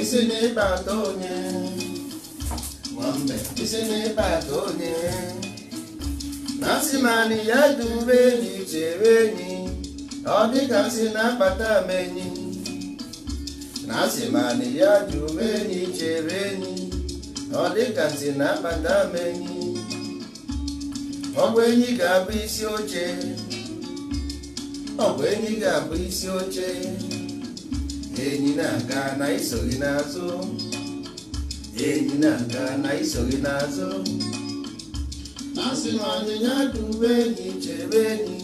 isi n'ịkpa ata onye isi n'ịkpa ata onye masị ya dube enyi chere enyi ọ dịka nsị na-akpata m enyi na-asị ma ya dube enyi chere enyi ọ dịka nsị na-akpata m enyi ọgwụ enyi ga-abụ isi oche ọgwụ enyi ga-abụ isi oche enyi na-aga na iso gị n'azụ enyi na-aga na iso gị n'azụ asị m anyịnya dị enyi chebe enyi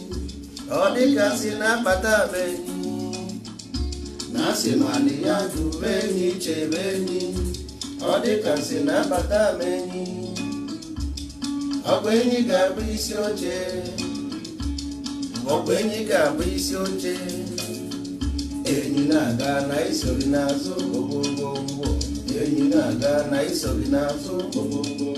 ọ dịgasị na-akpata m enyi na asị m anyịnya dị enyi chebe enyi ọ dịgasị na-akpata m enyi ọgwa enyi ga-abụ isi oche ọgwa enyi ga-abụ isi oche enyi na-aga na isori n'azụ ogbogbo enyi na-aga na isori n'azụ ụgbọ ụgbọ.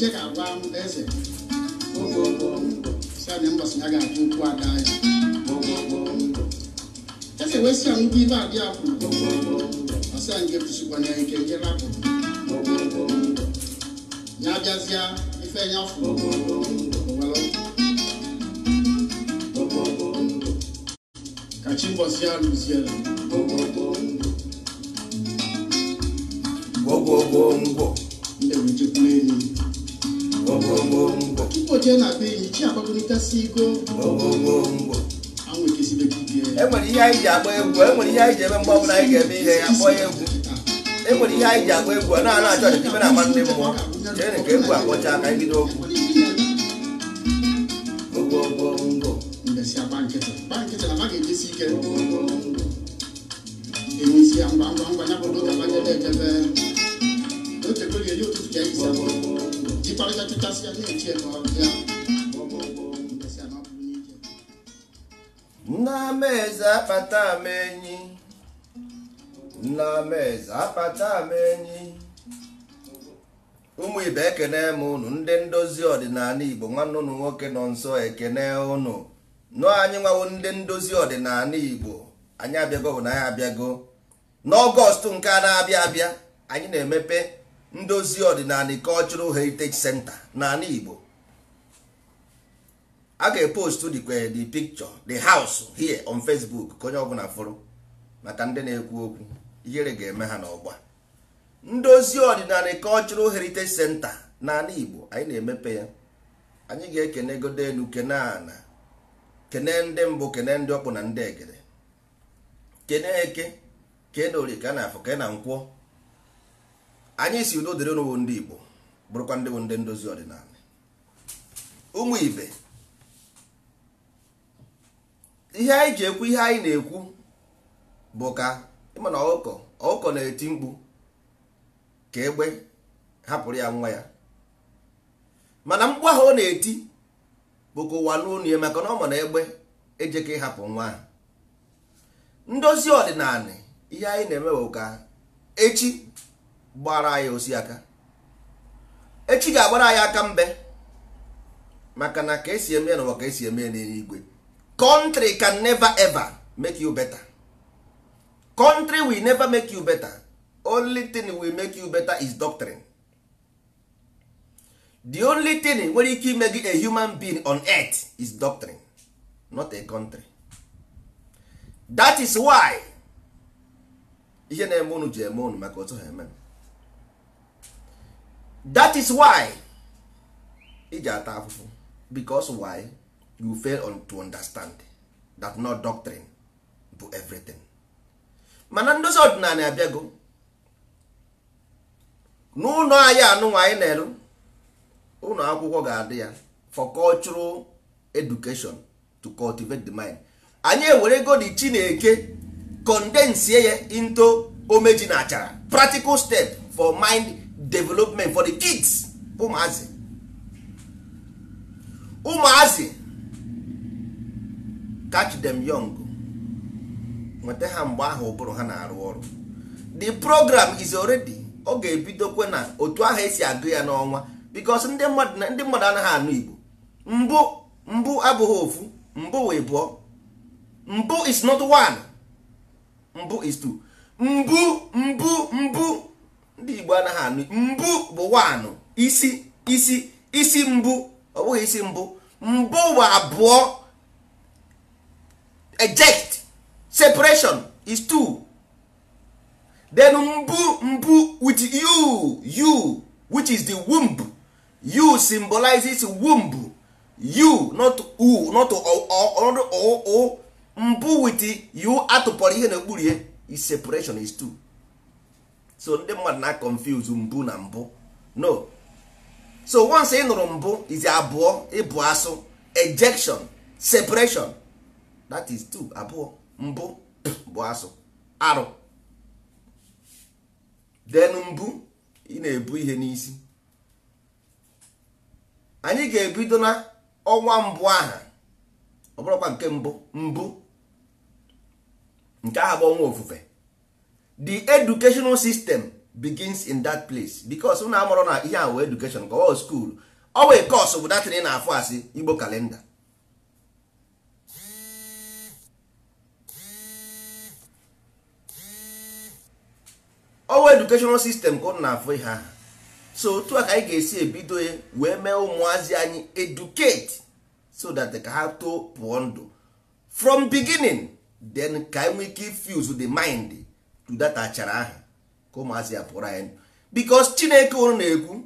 je ka gwa eze na mbọsị ya ga-atụ ụkwụ ada ya e ga ewesị ya ndị ibe adị apụ ọsa nke tụsịkwana ya ike jere ya abịazịa ife ya fụ kachi mbọsị ya lụziere gwogwogwo ngwo e na be enyi chi akpakọrịtasị enwere ihe anyị ji agba egwu enwere ihe anyị ji eme mgbe ọbụla anyị ga-eme ihe ya kpọọ ya egwu enwere ihe anyị ji agba egwu a na-ana achọ ọchịchị ebe agba ndị mmụọ chere ka egwu akpọcha aka ibido okwu chịkọrịta chụchasị ya na akpata m enyi eze akpata m enyi ụmụ ibe ekene m unu ndị ndozi ọdịnala Igbo nwanne unu nwoke nọ nso ekene ụnụ, nọ anyị nwawo ndị ndozi ọdịnala Igbo anyị abịago bụ na anyị abịago n'ọgọst nke a na-abịa abịa anyị na-emepe ndozi ọdịnala cultural heritage center n'ala igbo a ga-epostu the picture the house here on facebook ka onye ọbụla fụrụ maka ndị na-ekwu okwu ihere ga-eme ha n'ọgba ndozi ọdịnala cultural heritage center n'ala igbo anyị na-emepe ya anyị ga-ekene godo elu kene ana kene ndị mbụ kene ndị ọkpụ na ndị egere kene eke kene orie ka na afọ kene na anyị si udo dịrị n'ụwụ ndị Igbo bụrụkwa ndị bụ ndị ndozi ọdịnala ụmụ ibe ihe anyị ji ekwu ihe anyị na-ekwu bụ ka ịmana ọkụkọ ọkụkọ na-eti mkpu ka egbe hapụrụ ya nwa ya mana mkpu ahụ ọ na-eti bụ ka ụwa n'ụlọ ya maka na ọ ma na egbe ejeka ịhapụ nwa ahụ ndozi ọdịnala ihe anyị na-eme bụ ka echi gbara anyị osi aka echi ga-agbara anyị aka mbe maka na ka esi eme n'ụwa ka esi eme n'eluigwe country can never ever make you better country will never make you better only thing will make you better is doctrine the only thing nwere ike ime gị a human being on earth is doctrine not a country that is why ihe na-eme unu ji eme unu maka otu ha eme that is why ị ji ata afụfụ because why you fail on to understand that no doctrine bụ everything mana ndozi ọdịnala abịago n'ụlọ anyị anụnwa anyị na-eru ụlọ akwụkwọ ga-adị ya for cultural education to cultivate the mind anyị ewerego the chineke condensie ya into omeji na achara practical step for mind development for the kids ụmụazị ụmụazị catch them young nweta ha mgbe ahụ ụbụrụ ha na-arụ ọrụ the program is already ọ ga-ebidokwe na otu ahụ esi agụ ya n'ọnwa because ndị mmadụ anaghị anụ Igbo mbụ mbụ abụghị ofu mbụ wee bụọ mbụ is not one mbụ is two mbụ mbụ mbụ ndị igbo anaghị anụ mbụ bụ wanụ isi isi isi mbụ ọ bụghị isi mbụ mbụ bụ abụọ eject separation is two then mbụ mbụ with you you which is the womb you symbolizes womb you not u not o mbụ with you atụpọrọ ihe na-ekpuru is separation is two so ndị mmadụ na confuse mbụ na mbụ no so once ị nụrụ mbụ izi abụọ ịbụ asụ ejection separation that is two abụọ mbụ bụ asụ arụ denu mbụ ị na-ebu ihe n'isi anyị ga-ebido na ọnwa mbụ aha ọ bụrụkwa nke mbụ mbụ nke aha bụ ọnwa ofufe the educational system begins in that place because unu amụrụ na ihe a education ka ọ school ọ wee course bụ datin na-afụ asị igbo kalenda ọwa educational system ka unu na-afụ ihe ahụ so otu a ka anyị ga-esi ebido wee mee ụmụazị anyị educate so that ka ha too pụọ ndụ from beginning then ka anyị nwee ike to the mind data achara ahụ ka ụmụazị ya pụrụ anyị bikos chineke ụrụ na-ekwu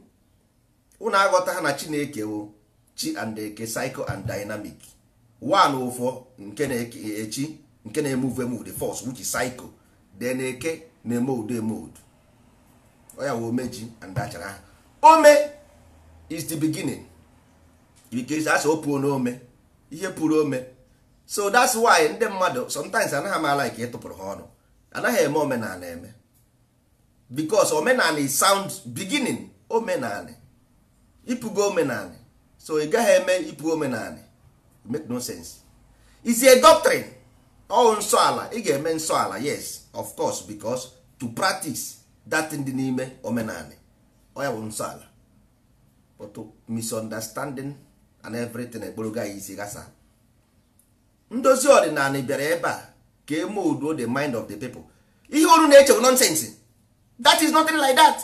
ụnụ aghọta ha na chineke wụ chi and eke cycle and dynamic one ụfọ nke na-eke echi nke na-eme uve mood force which cycle psycho then eke na-eme udo eme udo oya wụ omeji and achara aha ome is the beginning bikos asị opuo n'ome ihe pụrụ ome so that's why ndị mmadụ sometimes anaghị m ala ka ịtụpụrụ ha ọnụ anaghị eme omenala eme because omenala is sound beginning omenala ịpụgo omenala so ị gaghị eme ịpụ omenala make no sense is a doctrine ọ nsọ ala ị ga-eme nsọ ala yes of course because to practice that dị n'ime omenala ọ nsọala bụ nsọ ala but misunderstanding and everything ekporoga ya isi gasa ndozi ọdịnala bịara ebe a ka eme udo the mind of the people ihe oru na-eche bụ nonsense that is nothing like that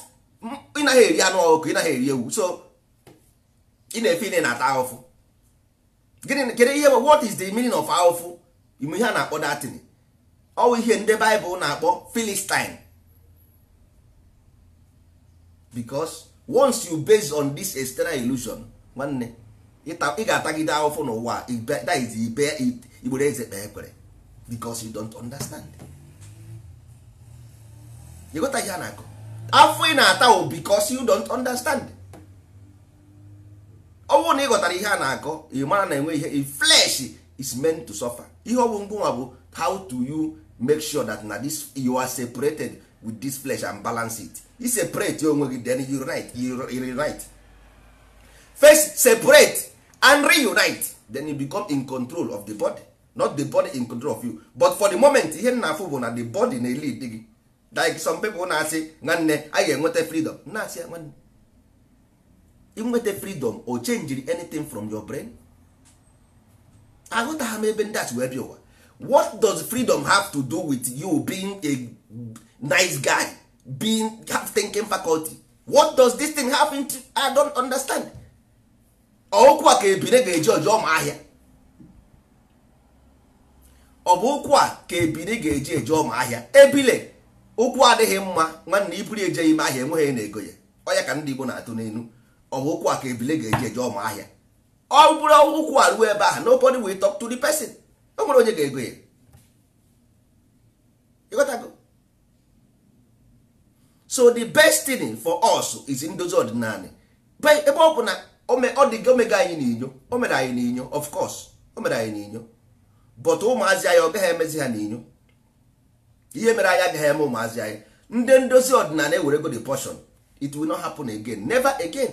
ị naghị eri anụ ọkụ ị eri ewu so ị na-efe ine na-ata ahụfụ gịnị kedu ihe bụ what is the meaning of ahụfụ ime ihe a na-akpọ datin ọwụ ihe ndị baịbụl na-akpọ philistine because once you base on this external illusion nwanne ị ga-atagide ahụfụ n'ụwa that is ibe igbere eze kpee ekwere because you don't understand you got ihe a na-akọ afọ ị na-ata o because you don't understand ọ bụrụ na ị ghọtara ihe a na-akọ ị mara na enwe ihe flesh is meant to suffer ihe ọ bụ mgbanwa bụ how to you make sure that na this you are separated with this flesh and balance it you separate onwe gị then you right you reunite first separate and reunite then you become in control of the body not the body in control of you but for the moment ihe na-afụ bụ na the body na elid gị like some pipo na-asị nwanne anyị ga-enweta freedom na-asị ya nwanne freedom o change anything from your brain aghọtagha m ebe ndị asị wee bịa ụwa what does freedom have to do with you being a nice guy being have thinking faculty what does this thing happen to? I don't understand okwu a ka ebire ga-eji ọjọọ ma ahịa ọ bụ ụkwụ a ka ebili ga-eji eje ọma ahịa ebile ụkwụ adịghị mma nwanne iburu eje ime ahịa enweghị na-ego ya ọya ka ndị Igbo na-atụ n'elu ọ bụ ụkwụ a ka ebile ga-eji eje ọma ahịa ọ bụrụ ụkwụ a ruo ebe ahụ nobody will talk to the person o nwere onye ga-ego ya so the best thing for us is ndozi ọdịnala ebe ọ bụ na ọ dị omega anyị n'inyo o mere anyị n'inyo of course o mere anyị n'inyo but ụmụazị anyị ọ gaghị emezi ha n'inyo ihe mere anyị agaghị eme ụmụazị anyị ndị ndozi ọdịnala ewerego the portion it will not happen again never again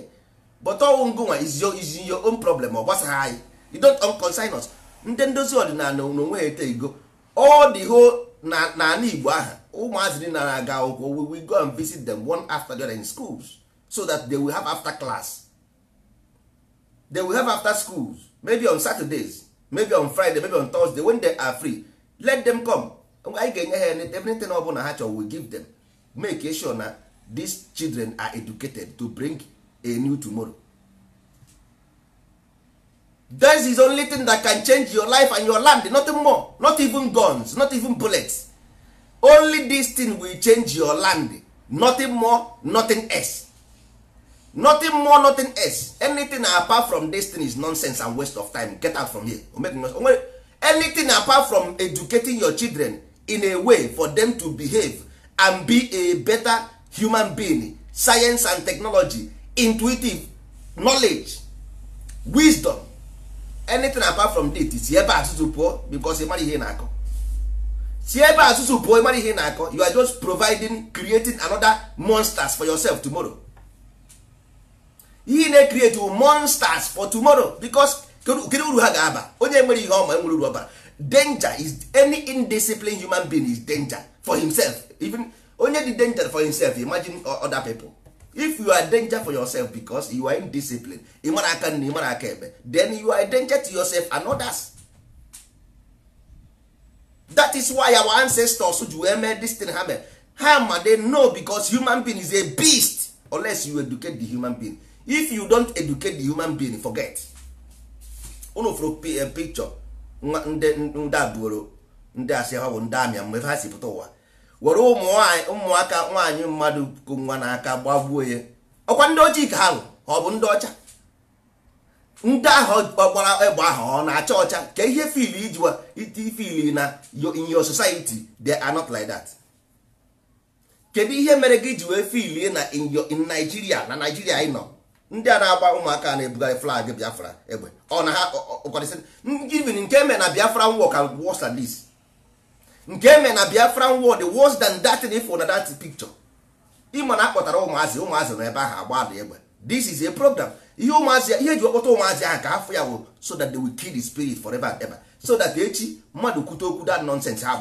but ọnwụ ngụnwa is your own problem ọ gbasaghị anyị you don't concern us ndị ndozi ọdịnala na onwe ete igo all the whole n'ala Igbo aha ụmụazị dị na aga akwụkwọ we go and visit them one after the other in schools so that they will have after class they will have after schools maybe on Saturdays maybe on friday maybe on thursday when they are free let them come anyị ga-enye ha everything ọ bụla ha chọrọ we give them make sure na these children are educated to bring a new tomorrow this is only thing that can change your life and your land nothing more not even guns not even bullets only this thing will change your land nothing more nothing else nothing more nothing else anything apart from this thing is nonsense and waste of time get out from here anything apart from educating your children in a way for them to behave and be a better human being science and technology intuitive knowledge wisdom anything apart from that is ebe asụsụ pụọ because ịmara ihe na-akọ si ebe asụsụ pụọ ịmara ihe na-akọ you are just providing creating another monsters for yourself tomorrow ihe na create monsters for tomorrow because kedu uru ha ga-aba onye nwere ihe ọma enwere uru ọbara danger is any indisciplined human being is danger for himself even onye dị danger for himself imagine other people if you are danger for yourself because you are indisciplined ịmara aka nna ịmara aka ebe then you are danger to yourself and others that is why our ancestors ji wee mee this thing ha mere ha ma they know because human being is a beast unless you educate the human being if you don't educate the human being forget unu fụrụ eh, picture ndị a buoro ndị asị ha bụ ndị amịa mgbe ha si pụta ụwa were ụmụaka nwaanyị mmadụ kụ nwa n'aka gbagbuo ya ọkwa ndị ojii ka ha bụ ọ bụ ndị ọcha ndị ahụ ọgbara egbe ahụ ọ na-acha ọcha ka ihe fil ijiwa iti fil na in your society they are not like that kedu ihe mere gị ji wee fil na in Nigeria na Nigeria ị nọ ndị a na-agba ụmụaka na ebuga flag biafra egbe ọ na ha even nke eme na biafra war ka worse than this nke eme na biafra war the worse than that if na that picture ịma na akpọtara ụmụazị ụmụazị nọ ebe ahụ agba ada egbe this is a program ihe ụmụazị ihe eji kpọta ụmụazị ahụ ka afọ ya wụ so that they will kill the spirit for forever and ever so that echi mmadụ kwute okwu that nonsense ha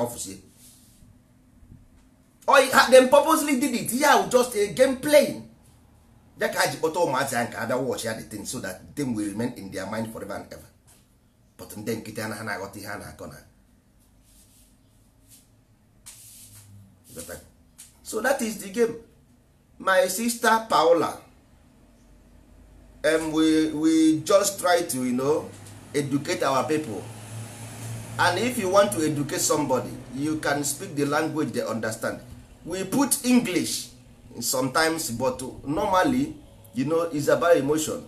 ha them purposely did it ihe ahụ just a game playing ya ka a ji kpọta ụmụazị ya nke abịa wọchị ya the thing so that the thing will remain in their mind forever and ever but ndị nkịta na ha na-aghọta ihe a na-akọ na so that is the game my sister Paola um, we, we just try to you know, educate our people and if you want to educate somebody you can speak the language they understand we put English sometimes but normally you know it's about emotion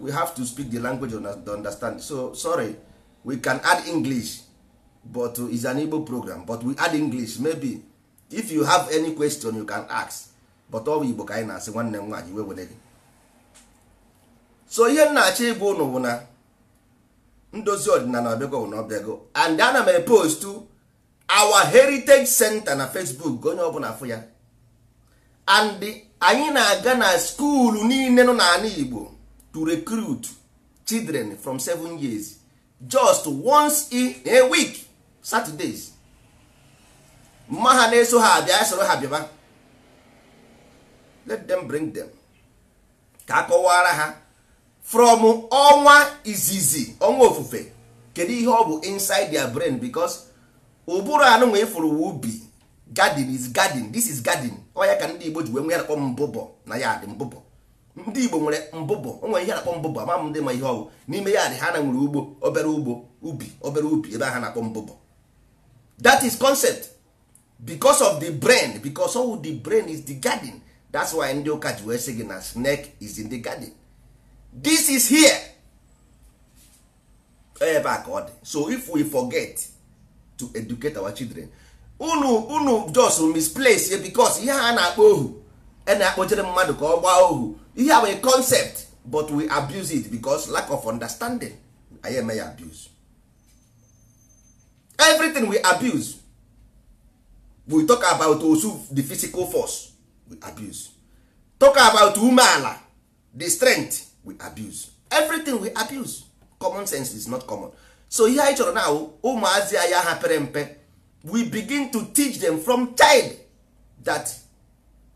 we have to speak the language to understand so sorry we can add english but is an igbo program but we add english maybe if you have any question you can ask but ọ bụ igbo ka anyị na-asị nwanne m nwaanyị wewere gị so ihe m na-achọ ịbụ ụnụ bụ na ndozi ọdịnala ọbịago bụ na ọbịago and ana m epost our heritage center na facebook onye ọbụla afụ ya and anyị na-aga na skuulu niile nọ n'ala Igbo to recruit children from seven years just once in a week Saturdays mma ha na-eso ha abịa soro ha bịaba let them bring them ka a ha from ọnwa izizi ọnwa ofufe kedu ihe ọ bụ inside their brain because ụbụrụ anụnwa ifuru ubi garden is garden this is garden ọ ya ka ndị igbo ji wee nwe ya nakpọ mbụbọ na ya dị mbụbọ ndị igbo nwere mbụbọ o nwere ihe na-akpọ mbụbọ ama m ndị ma ihe ọgwụ n'ime ya ha na nwere ugbo obere ugbo ubi obere ubi ebe ha na-akpọ mbụbọ that is concept because of the brain because all the brain is the garden that's why ndị ụka ji wee sị gị na snake is in the garden this is here ebe a ka ọ dị so if we forget to educate our children unu unu just misplace ya because ihe a na-akpọ ohu a e na-akpọchere mmadụ ka ọ gbaa ohu ihe a bụ concept but we abuse it because lack of understanding anyị eme ya abuse everything we abuse we talk about osu the physical force we abuse talk about umeala the strength we abuse everything we abuse common sense is not common so ihe anyị chọrọ na ụmụazị anyị ha pere mpe we begin to teach them from child that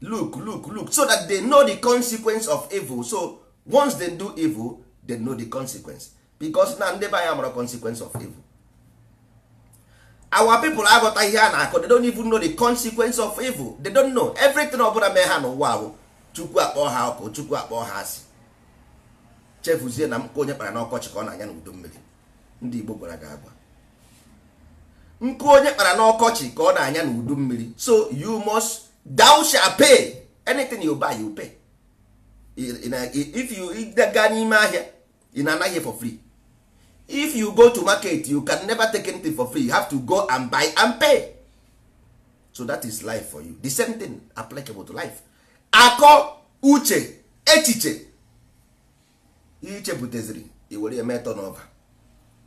look look look so that they know the consequence of evil so once they do evil they know the consequence because na ndị ya anya mara consequence of evil our people aghọta ihe a na-akọ they don't even know the consequence of evil they don't know everything ọbụla mee ha n'ụwa ahụ chukwu akpọ ha ọkụ chukwu akpọ ha asị chefuzie na mkpa onye kpara n'ọkọchị ka ọ na-anya n'udu mmiri ndị igbo gwara gị agwa nkụ onye kpara n'ọkọchị ka ọ na-anya n'udu mmiri so you must thou shall pay anything you buy you pay if you gaa n'ime ahịa ị na-anaghị for free if you go to market you can never take anything for free you have to go and buy and pay so that is life for you the same thing applicable to life akọ uche echiche ichepụtaziri i were ya metọ n'ọba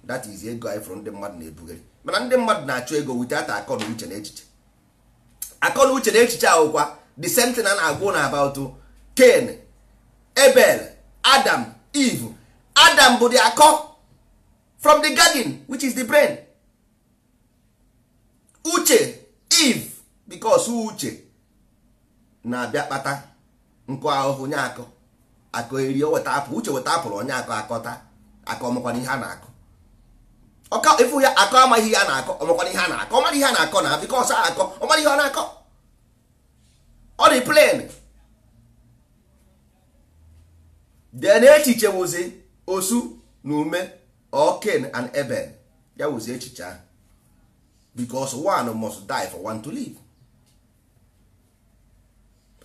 that is ego anyị fọrọ ndị mmadụ na-ebugharị mana ndị mmadụ na-achụ ego witata akọ na uche na echiche akọ na uche na echiche ahụkwa the same na-agwụ na about ken ebele Adam Eve Adam bụ the akọ from the garden which is the brain uche Eve because uche na-abịa kpata nkụ ahụhụ nye akọ akọ eri weta apụ uche weta apụrụ onye akọ akọta akọ makwana ihe a na-akọ ọka ifu ya akọ amaghị ihe a na-akọ ọ makwana ihe a na-akọ ọmara ihe a na-akọ na bikos a akọ ọmara ihe ọ na-akọ ọ dị plen den echiche wụzi osu na ume oken and eben ya wụzi echiche ahụ bicos one must die for one to live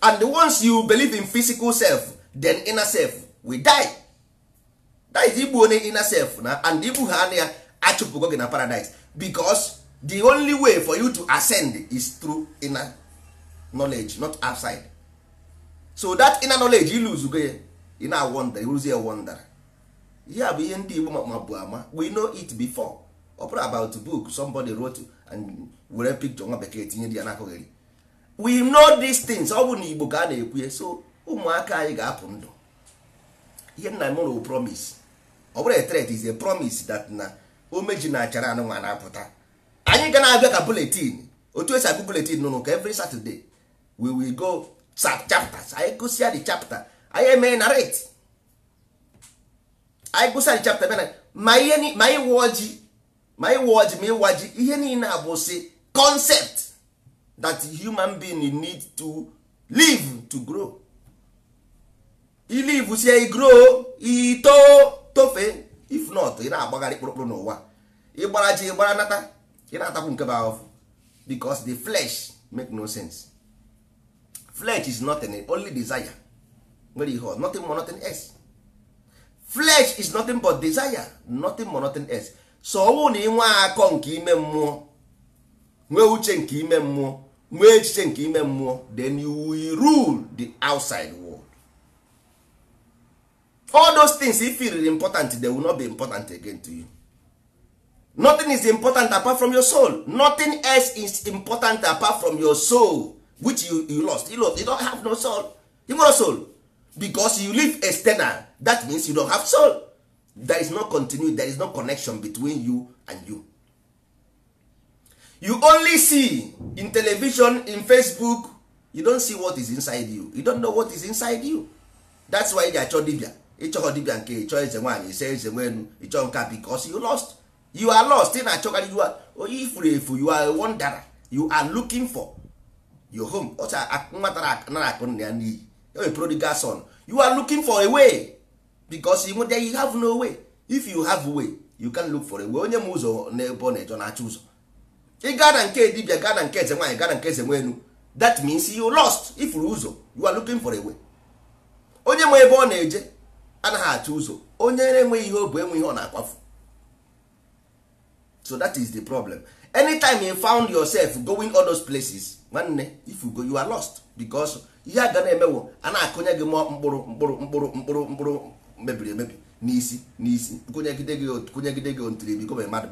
and once you believe in physical self then inner self will die that is igbu onye inner self na and igbu ha anya achụpụgo gị na paradise because the only way for you to ascend is through inner knowledge not outside so that inner knowledge iluzugo ya ị na-awonder iruzie wonder ihe a bụ ihe ndị Igbo mabu ama we know it before ọ bụrụ about book somebody wrote and were picture nwa bekee tinye ya n'akụghịrị we know these things ọ bụ na Igbo ka a na-ekwu so ụmụaka anyị ga-apụ ndụ ihe nna m promise ọ bụrụ a threat is a promise that na omeji na achara anụnwa na-apụta anyị ga na-abịa ka buletin otu esi agụ buletin nụnụ ka every Saturday we will go chapters anyị gụsịa the chapter anyị emee na rate anyị gụsịa the chapter bena ma ihe ma ịwa ọjị ma ịwa ọjị ma ịwa ji ihe niile a bụ sị concept that human being need to live to grow ilive sie grow ito tofe if not ị na-agbagharị kpụrụkpụrụ n'ụwa ịgbara ji ịgbara nata ị na-atakwu nke bụ ahụfụ because the flesh make no sense flesh is nothing only desire nwere ihe nothing more nothing else flesh is nothing but desire nothing more nothing else so ọnwụ na ịnwe akọ nke ime mmụọ nwee uche nke ime mmụọ nwee echiche nke ime mmụọ then you will rule the outside world. all those things if feel important they will not be important again to you nothing is important apart from your soul nothing else is important apart from your soul which you, you lost you lost you don't have no soul you no soul because you live external that means you don't have soul there is no continue there is no connection between you and you you only see in television in facebook you don't see what is inside you you don't know what is inside you that's why they achọ dibia ịchọghọ dibia nke ịchọ eze nwaanyị ise eze nwelu ịchọ nka because you lost you are lost ị na-achọkarị you are onye ifuru efu you are a you are looking for your home O ọcha nwata anara akụ nna ya n'iyi a e prodigal son you are looking for a way because you there you have no way if you have a way you can look for a way onye ma ụzọ n'ebe ọ na-eje na-achọ ụzọ ị gaa na nke dibia gaa na nke eze nwaanyị gaa na nke eze nwelu that means you lost ifuru ụzọ you are looking for a way onye ma ebe ọ na-eje anaghị achọ ụzọ onye na-enweghị ihe o bụ enwe ihe ọ na-akwafu so that is the problem anytime you found yourself going all those places nwanne if you go you are lost because ihe aga na-emewo a na-akụnye gị mkpụrụ mkpụrụ mkpụrụ mkpụrụ mkpụrụ mebiri emebi n'isi n'isi kụnyegide gị kụnyegide gị ontiri bi gome mmadụ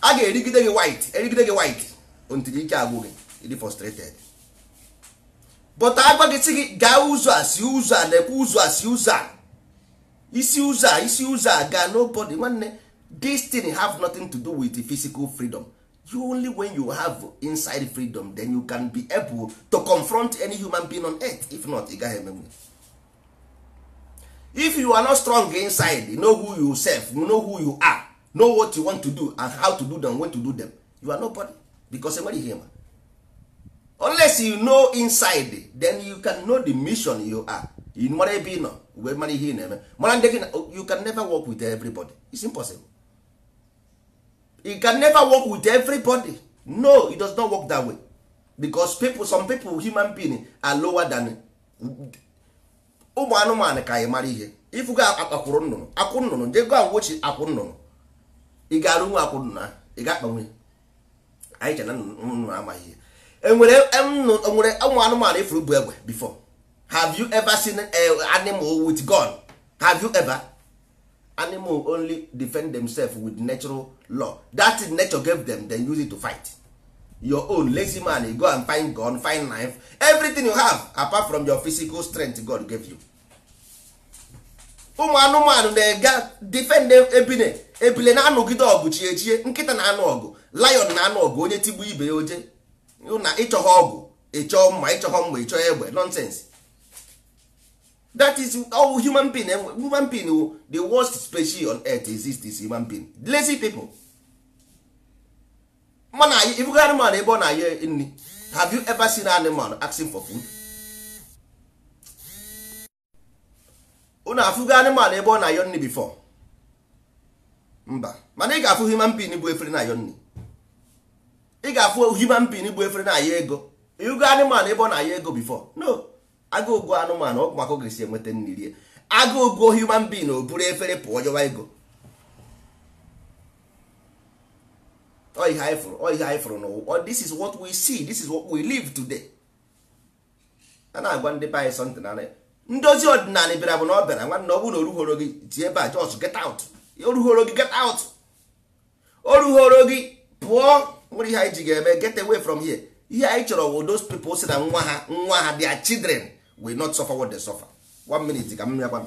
a ga-erigide gị white erigide gị white ontiri ike agwụ gị ịdị frustrated but agwa gị si gị gaa ụzọ a si ụzọ a ụzọ a si ụzọ a isi ụzọ a isi ụzọ a gaa nobody nwanne this have nothing to do with physical freedom you only when you have inside freedom then you can be able to confront any human being on earth if not ị gaghị emenwe if you are not strong inside you know who you self you know who you are know what you want to do and how to do them when to do them you are nobody because enweghị ihe ma unless you know inside then you can know the mission you are you mara ebe ị nọ wee mara ihe ị na-eme mara ndị oh, gị na you can never work with everybody it's impossible you can never work with everybody no it does not work that way because people some people human being are lower than ụmụ anụmanụ ka anyị mara ihe ifugo akpakwụrụ nnụnụ akwụ nnụnụ ndị go awochi akwụ nnụnụ ị ga-arụ nwe akwụ nnụnụ ị ga-akpanwe anyị chena nnụnụ amaghị ihe enwere nwere ụmụ anụmanụ ifuru e bụ egbe before have you ever seen eh, animal with gun have you ever animal only defend themselves with natural law that nature gave them then use it to fight your own lazy man you go and find gun find knife everything you have apart from your physical strength God gave you ụmụ anụmanụ na-ega defend ebile ebile na-anụgide ọgụ chiechie nkịta na-anụ ọgụ lion na-anụ ọgụ onye tigbu ibe ya oje na ịchọghị ọgwụ ịchọọ mma ịchọghị mgbe ịchọọ egbe nonsense that is all human being human being the worst species on earth exists is human being lazy people mana ibugo animal ebe ọ na-ayọ nri have you ever seen an animal asking for food unu afụgo animal ebe ọ na-ayọ nri before mba mana ị ga-afụ human being bụ efere na-ayọ nri ị ga-afụ human being bụ efere na-aya ego ịgo anụmanụ ebe ọ na-aya ego bifo no agụgo anụmanụ ọ maka oge si enweta nri rie agụgo human being o buru efere pụọ jọwa ego ọ ihe anyị ọ ihe anyị fụrụ n'ụwa this is what we see this is what we live today a na-agwa ndị be anyị something ndozi ọdịnala bịara bụ na ọ bịara nwanne ọ bụrụ na oruhoro gị ji ebe a just get out oruhoro gị get out oruhoro gị pụọ nwere ihe anyị ji ga-eme get away from here ihe anyị chọrọ wo those people si na nwa ha nwa ha their children will not suffer what they suffer one minute ka m ya gwa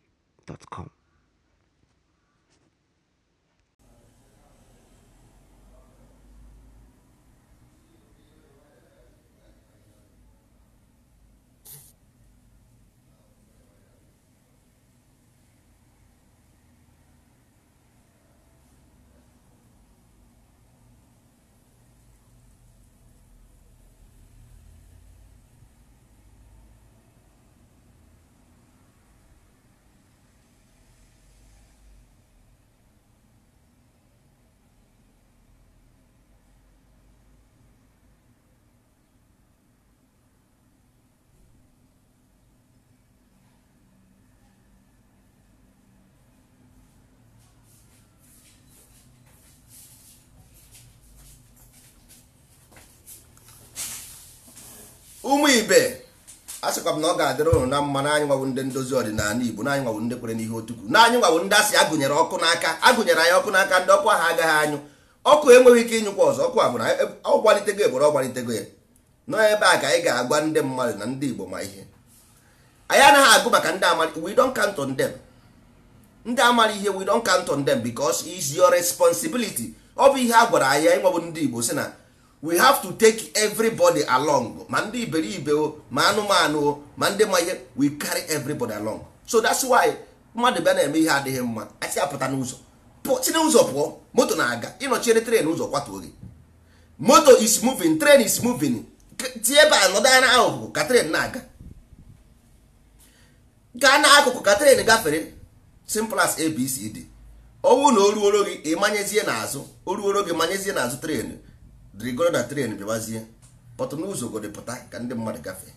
Podcast.com. ụmụ ibe a sịkwa m na ọ ga-adịrị ụnụ na mma na anyị nwawo ndị ndozi ọdịnala igbo na anyị nwawo ndị kwere n'ihe otukwu na anyị nwawo ndị asị agụnyere ọkụ n'aka agụnyere anyị ọkụ n'aka ndị ọkụ ahụ agaghị anyụ ọkụ enweghị ike ịnyụkwa ọzọ ọkụ abụrụ ọ gbalitego eboro ọ gbalitego ya n'ebe a ka anyị ga-agwa ndị mmadụ na ndị igbo ma ihe anyị anaghị agụ maka ndị amara we don't count ndị amara ihe we don't count bikos them because it's ọ bụ ihe a gwara anyị anyị nwawo ndị igbo si na we have to take everybody along ma ndị iberibe o ma anụmanụ o ma ndị ma ihe we carry everybody along so that's why mmadụ bịa na-eme ihe adịghị mma asị apụta n'ụzọ si n'ụzọ pụọ moto na-aga ịnọchiere tren ụzọ kwatuo gị moto is moving train is moving tie ebe a nọdụ anya ahụhụ ka tren na-aga gaa n'akụkụ ka tren gafere simple as abcd ọnwụ na o ruoro gị ị n'azụ o ruoro gị manyezie n'azụ tren rigoro na tren bịawazie pọtụ n'ụzọ godepụta ka ndị mmadụ gafee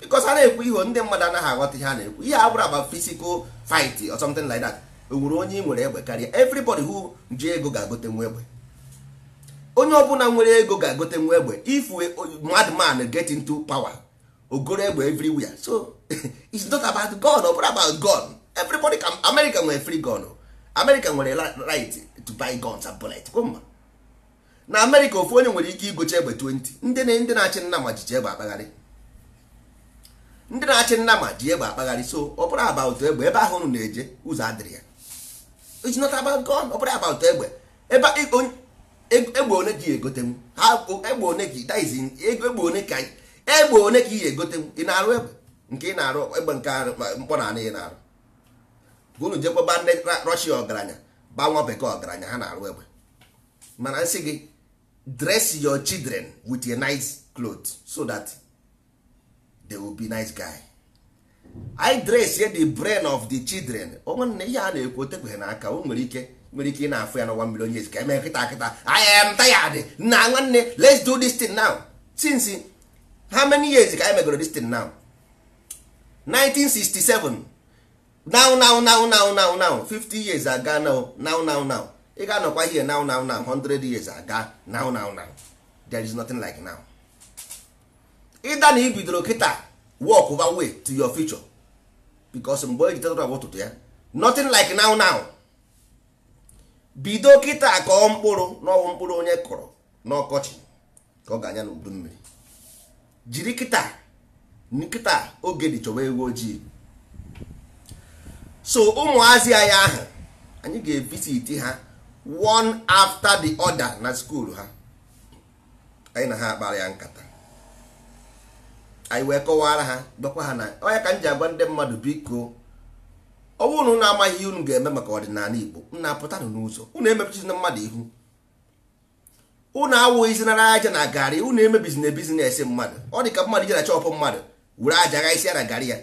bikos a na-ekwu ihe ndị mmadụ anaghị aghọta ihe a na-ekwu ihe abụrụ aba fisikal fight or something like that o e nwere onye nwere egbe karịa everybody who ji ego ga-agote nwa egbe onye ọbụla nwere ego ga-agote nwa egbe if madman get into power ogoro egbe everywhere so it's not about gun ọ bụrụ about gun everybody can america nwere free gun america nwere right to buy guns and bullets mma na amerịka ofu onye nwere ike igocha egbe 20 ndị ndị na-achị nnama ji egbe akpagharị ndị na-achị nnama ji egbe akpagharị so ọ bụrụ egbe ebe ahụ unu na-eje ụzọ adịrị ya it's not about God ọ egbe ebe egbe one ka egotenwu egbe one ka egbe one ka egbe one ka ihe egotenwu ị na-arụ egbe nke ị na-arụ egbe nke mkpọ na anị ị na-arụ unu jekwaba ndị Russia ọgaranya ba bekee ọgaranya ha na-arụ egbe mana nsị gị dress your children with a nice cloth so that they will be nice guy I dress ye the brain of the children onwanne ihe a na-ekwu otekweghị n'aka o nwere ike nwere ike ị na-afụ ya n'ụwa mmiri onye ezi ka eme nkịta kịta I am tired na nwanne let's do this thing now since how many years ka anyị e megoro this thing now 1967 now now now now now now 50 years ago now now now now ị ga-anọkwa ihe now now now 100 years aga now now now there is nothing like now ịda na ibidoro kịta walk over way to your future because mgbe eji tetara ụtụtụ ya nothing like now now bido kịta kọọ mkpụrụ n'ọwụ mkpụrụ onye kụrụ n'ọkọchị ka ọ ga-anya n'udu mmiri jiri kịta nkịta oge dị chọwa ewu ojii so ụmụazị anyị ahụ anyị ga evisiti ha one after the other na skuul ha anyị na ha akpara ya nkata anyị wee kọwara ha dọkwa ha na onye ka m ji agwa ndị mmadụ biko ọ bụrụ na amaghị ihe unu ga-eme maka ọdịnala Igbo unu apụtanụ n'ụzọ unu emepechizina mmadụ ihu unu awụghịzinara aja na garị unu emebizina bizinesi mmadụ ọ dị ka mmadụ je na chọpụ mmadụ were aja ghaisi ya na garị ya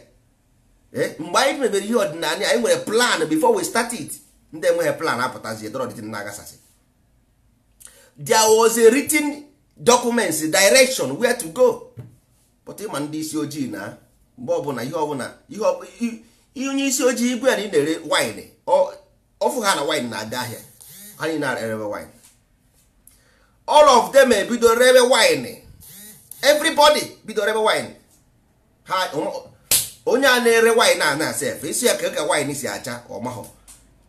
eh, mgbe anyị mebere ihe ọdịnala anyị nwere plan before we start it ndị enweghị plan apụtazi dọrọ na-agasasị there was a written documents direction where to go but ịma ndị isi ojii na mgbe ọbụla ihe ọbụla ihe onye isi ojii igwe ya na ị na-ere wine ọfụ ha na wine na aga ahịa ha niile na-erebe wine all of them ebido rebe wine everybody bido rebe wine ha onye a na-ere wine a na-asa efe isi ya ka ka wine si acha ọmahọ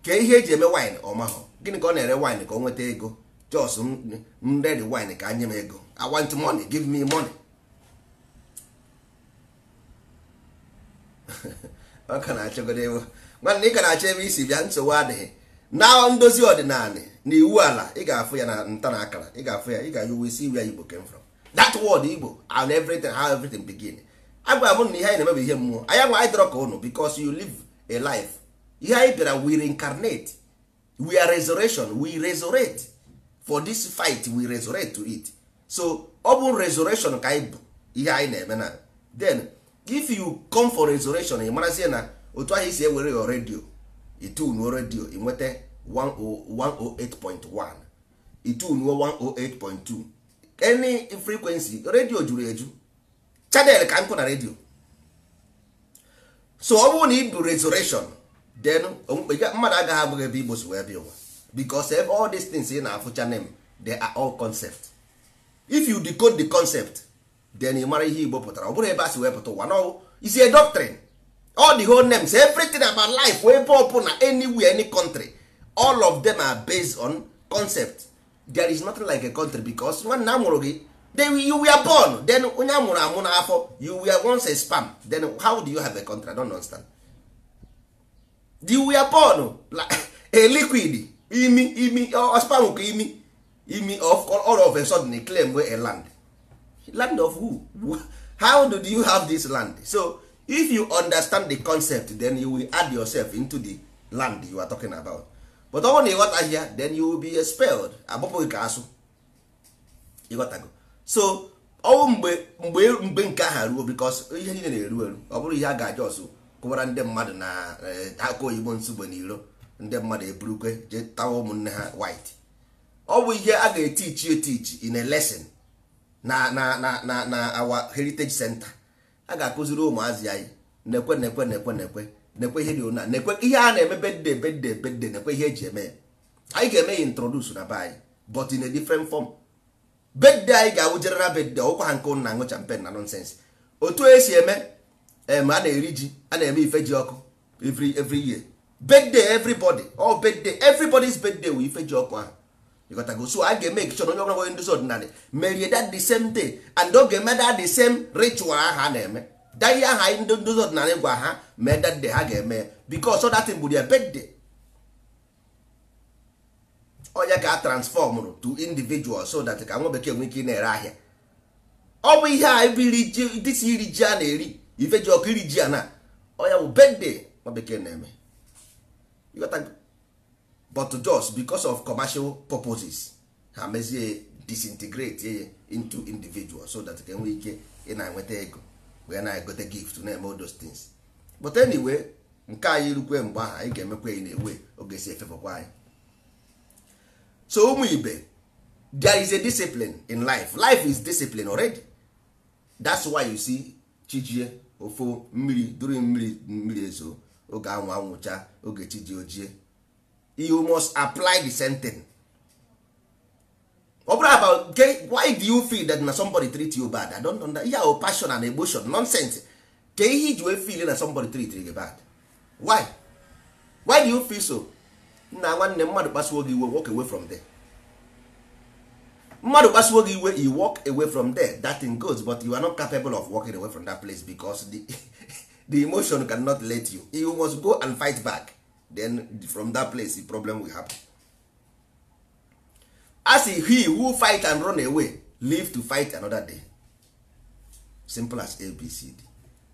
kee ihe eji eme wine ọmahụ gịnị ka ọ na-ere wine ka ọ nweta ego jos m redi wine ka nye m ego i want money give me money ọ ka na-achọgodo ego nwanne ị ka na-achọ ebe isi bịa nsogbu adịghị na ndozi ọdịnala na iwu ala ị ga-afụ ya na nta na akara ị ga-afụ ya ị ga ayụ wesi ya igbo came from dat word igbo and everything ha everything begin agwara m na ihe anyị na-eme ihe mmụọ anya nwa anyị dọrọ ka ụnụ because you live a life ihe anyị bịara we reincarnate we are resurrection we resurrect for this fight we resurrect to it so ọ bụ resurrection ka anyị bụ ihe anyị na-eme na then if you come for resurrection ị marazie na otu ahụ isi ewere yo redio itunuo redio ịnweta 108.1 itunuo 108.2 any frequency redio juru eju channel ka nkụ na redio so ọ bụrụ na ị bụ resurrection then mmadụ um, agaghị abụghị ebe igbo wee bịa ụwa because ebe all these things ị na-afụcha name they are all concept if you decode the concept then ị mara ihe igbo pụtara ọ bụrụ ebe a si wee pụta ụwa no is a doctrine all the whole names everything about life ebe ọ na anywhere any country all of them are based on concept there is nothing like a country because nwanne a mụrụ gị then you were born then onye a mụrụ amụ n'afọ you were once a sperm then how do you have a country I don't understand. di were born a liquid imi imi spam ka imi imi of all of a sudden claim wey a land land of who how do you have this land so if you understand the concept then you will add yourself into the land you are talking about but ọ na ịghọta ahịa then you will be expelled agbapụghị ka asụ ịghọtago so ọnwụ mgbe mgbe mgbe nke aha ruo because ihe niile na-eru eru ọ bụrụ ihe a ga-aja ọzọ kụwara ndị mmadụ na eh, aka oyibo nsogbu iro ndị mmadụ eburukwe je tawa ụmụnne ha white ọ bụ ihe a ga-etichi etichi in a lesson na na na na heritage center a ga-akụziri ụmụazị anyị nekwe ekwe nekwe ekwe na na ihe ha na ihe a na-eme bedde bedde bedde nekwe ihe eji eme ya anyị ga-eme ya introduce na be anyị but in a different form bedde anyị ga-awụ na bedde ọkwa ha nke na ṅụ champen na nonsense otu esi eme em eh, a na-eri ji a na-eme ife ji ọkụ every every year birthday everybody all birthday everybody's birthday wụ ife ji ọkụ ahụ ịghọtago so a ga-eme ekich onye ọbụla nwere ndozi ọdịnala merie that the same day and oge ga that the same ritual ahụ a na-eme daye aha ndị ndozi ọdịnala gwa ha mee that day ha ga-eme because that thing bụ their birthday onye ka a transformụrụ to individual so that ka nwa bekee nwee ike ị na-ere ahịa ọ bụ ihe a iri ji a na-eri ife ji ọkụ iri ji a na ọya bụ bedde nwa bekee na-eme but just because of commercial purposes ha mezie disintegrate ya into individual so that ka nwee ike ị na-enweta ego wee na-egote gift na-eme those things but anyway nke anyị rukwe mgbe ahụ anyị ga-emekwa ya na-ewe oge si efefekwa anyị so ụmụ ibe there is a discipline in life life is discipline already that's why you see chijie ofu mmiri duru mmiri mmiri ezo oge anwụ anwụcha oge chi ji ojie you must apply the sentence ọ bụrụ about why do you feel that na somebody treat you bad i don't understand ihe ahụ passion and emotion nonsense ka ihe iji wee feel na somebody treat you bad why why do you feel so nna nwanne mmadụ kpasuo gị iwe walk away from there mmadụ kpasuo gị iwe you walk away from there that thing goes but you are not capable of walking away from that place because the, the emotion cannot let you you must go and fight back then from that place the problem will happen as he who fight and run away live to fight another day simple as abcd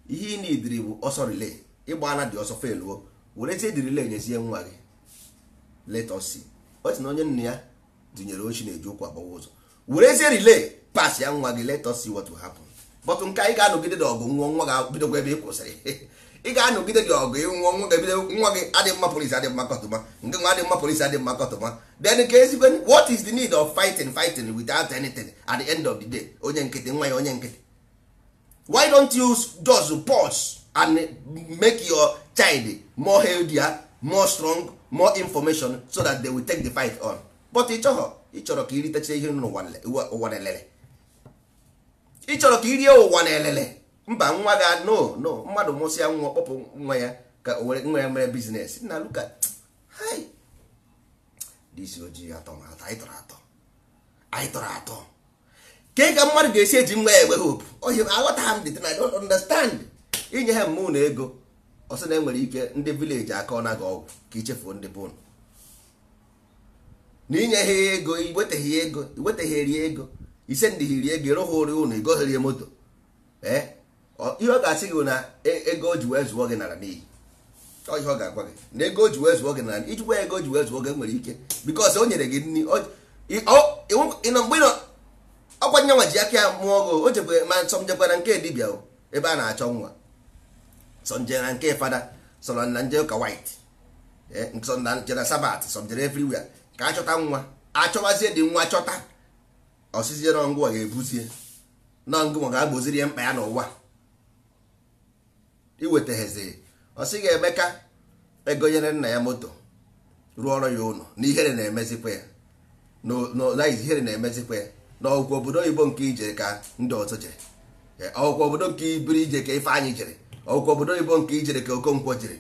ihe ị nidiri bụ ọsọ relay ịgba ana dị ọsọ feluo werezie dị relay nyezie nwa gị let us see osi na onye nna ya dụnyere ochi na-eji ụkwụ agbawa ụzọ werezie rile. pass ya nwa gị let us see what will happen but nke anyị ga-anọgide gị ọgụ nwụọ nwa ga bidogo ebe ị kwụsịrị ị ga-anọgide gị ọgụ nwụọ nwa ga-ebido nwa gị adị mma polisi adị mma kọtụma nke nwa adị mma polisi adị mma kọtụma then ka ezigbo what is the need of fighting fighting without anything at the end of the day onye nkịtị nwa ya onye nkịtị why don't you just pause and make your child more healthier more strong more information so that they will take the fight on but ị chọghọ ịchọrọ ka iritecha ihe ụwa na-elele ịchọrọ ka irie ụwa na-elele mba nwa ga no no mmadụ mụsịa nwa kpọpụ nwa ya ka nwa ya mere biznes na luka disi ojii atọ anyị tọrọ atọ anyị tọrọ atọ ke ka mmadụ ga-esi eji nwa ya enwe hope ohi aghọta m dị na don't understand inye ha mmụọ na ego ọsị na enwere ike ndị vileji aka ọ naghị ọgwụ ka ichefuo ndị bonu Eh? na inye ha ego iwetaghị ego ego ise ndị hiri ego ịrụghị ụrụ ụnụ igoghịrị moto ihe ọ ga-asị gị na ego o ji wee zụọ gị nara n'iyi ihe ọ ga-agwa gị na ego o ji wee zụọ gị nara ijikwa ego o ji wee zụọ gị nwere ike bikọs o nyere gị nri ịnọ mgbe ọkwa nyanwa ji aka ya mụọ gị o jekwe ma nsọ njekwara nke dibịa ebe a na-achọ nwa sọ nje na nke fada sọ na nje ụka white sọ sabat sọ njere ka achọta nwa achọwazie dị nwa chọta ọsịzie nọngụwa ga-ebuzie nọngụwa ga-agboziri ya mkpa ya n'ụwa iwetaghezi osi ga emeka ka e ego nyere nna ya moto rụọ ọrụ ya ụlọ na ihere na-emezikwa ya na ihere na-emezikwa ya na obodo oyibo nke ijere ka ndị ọzọ jere e, ọgwụgwọ obodo nke ibiri ije ka Ifeanyị jere ọgwụgwọ obodo oyibo nke ijere ka Okonkwo jere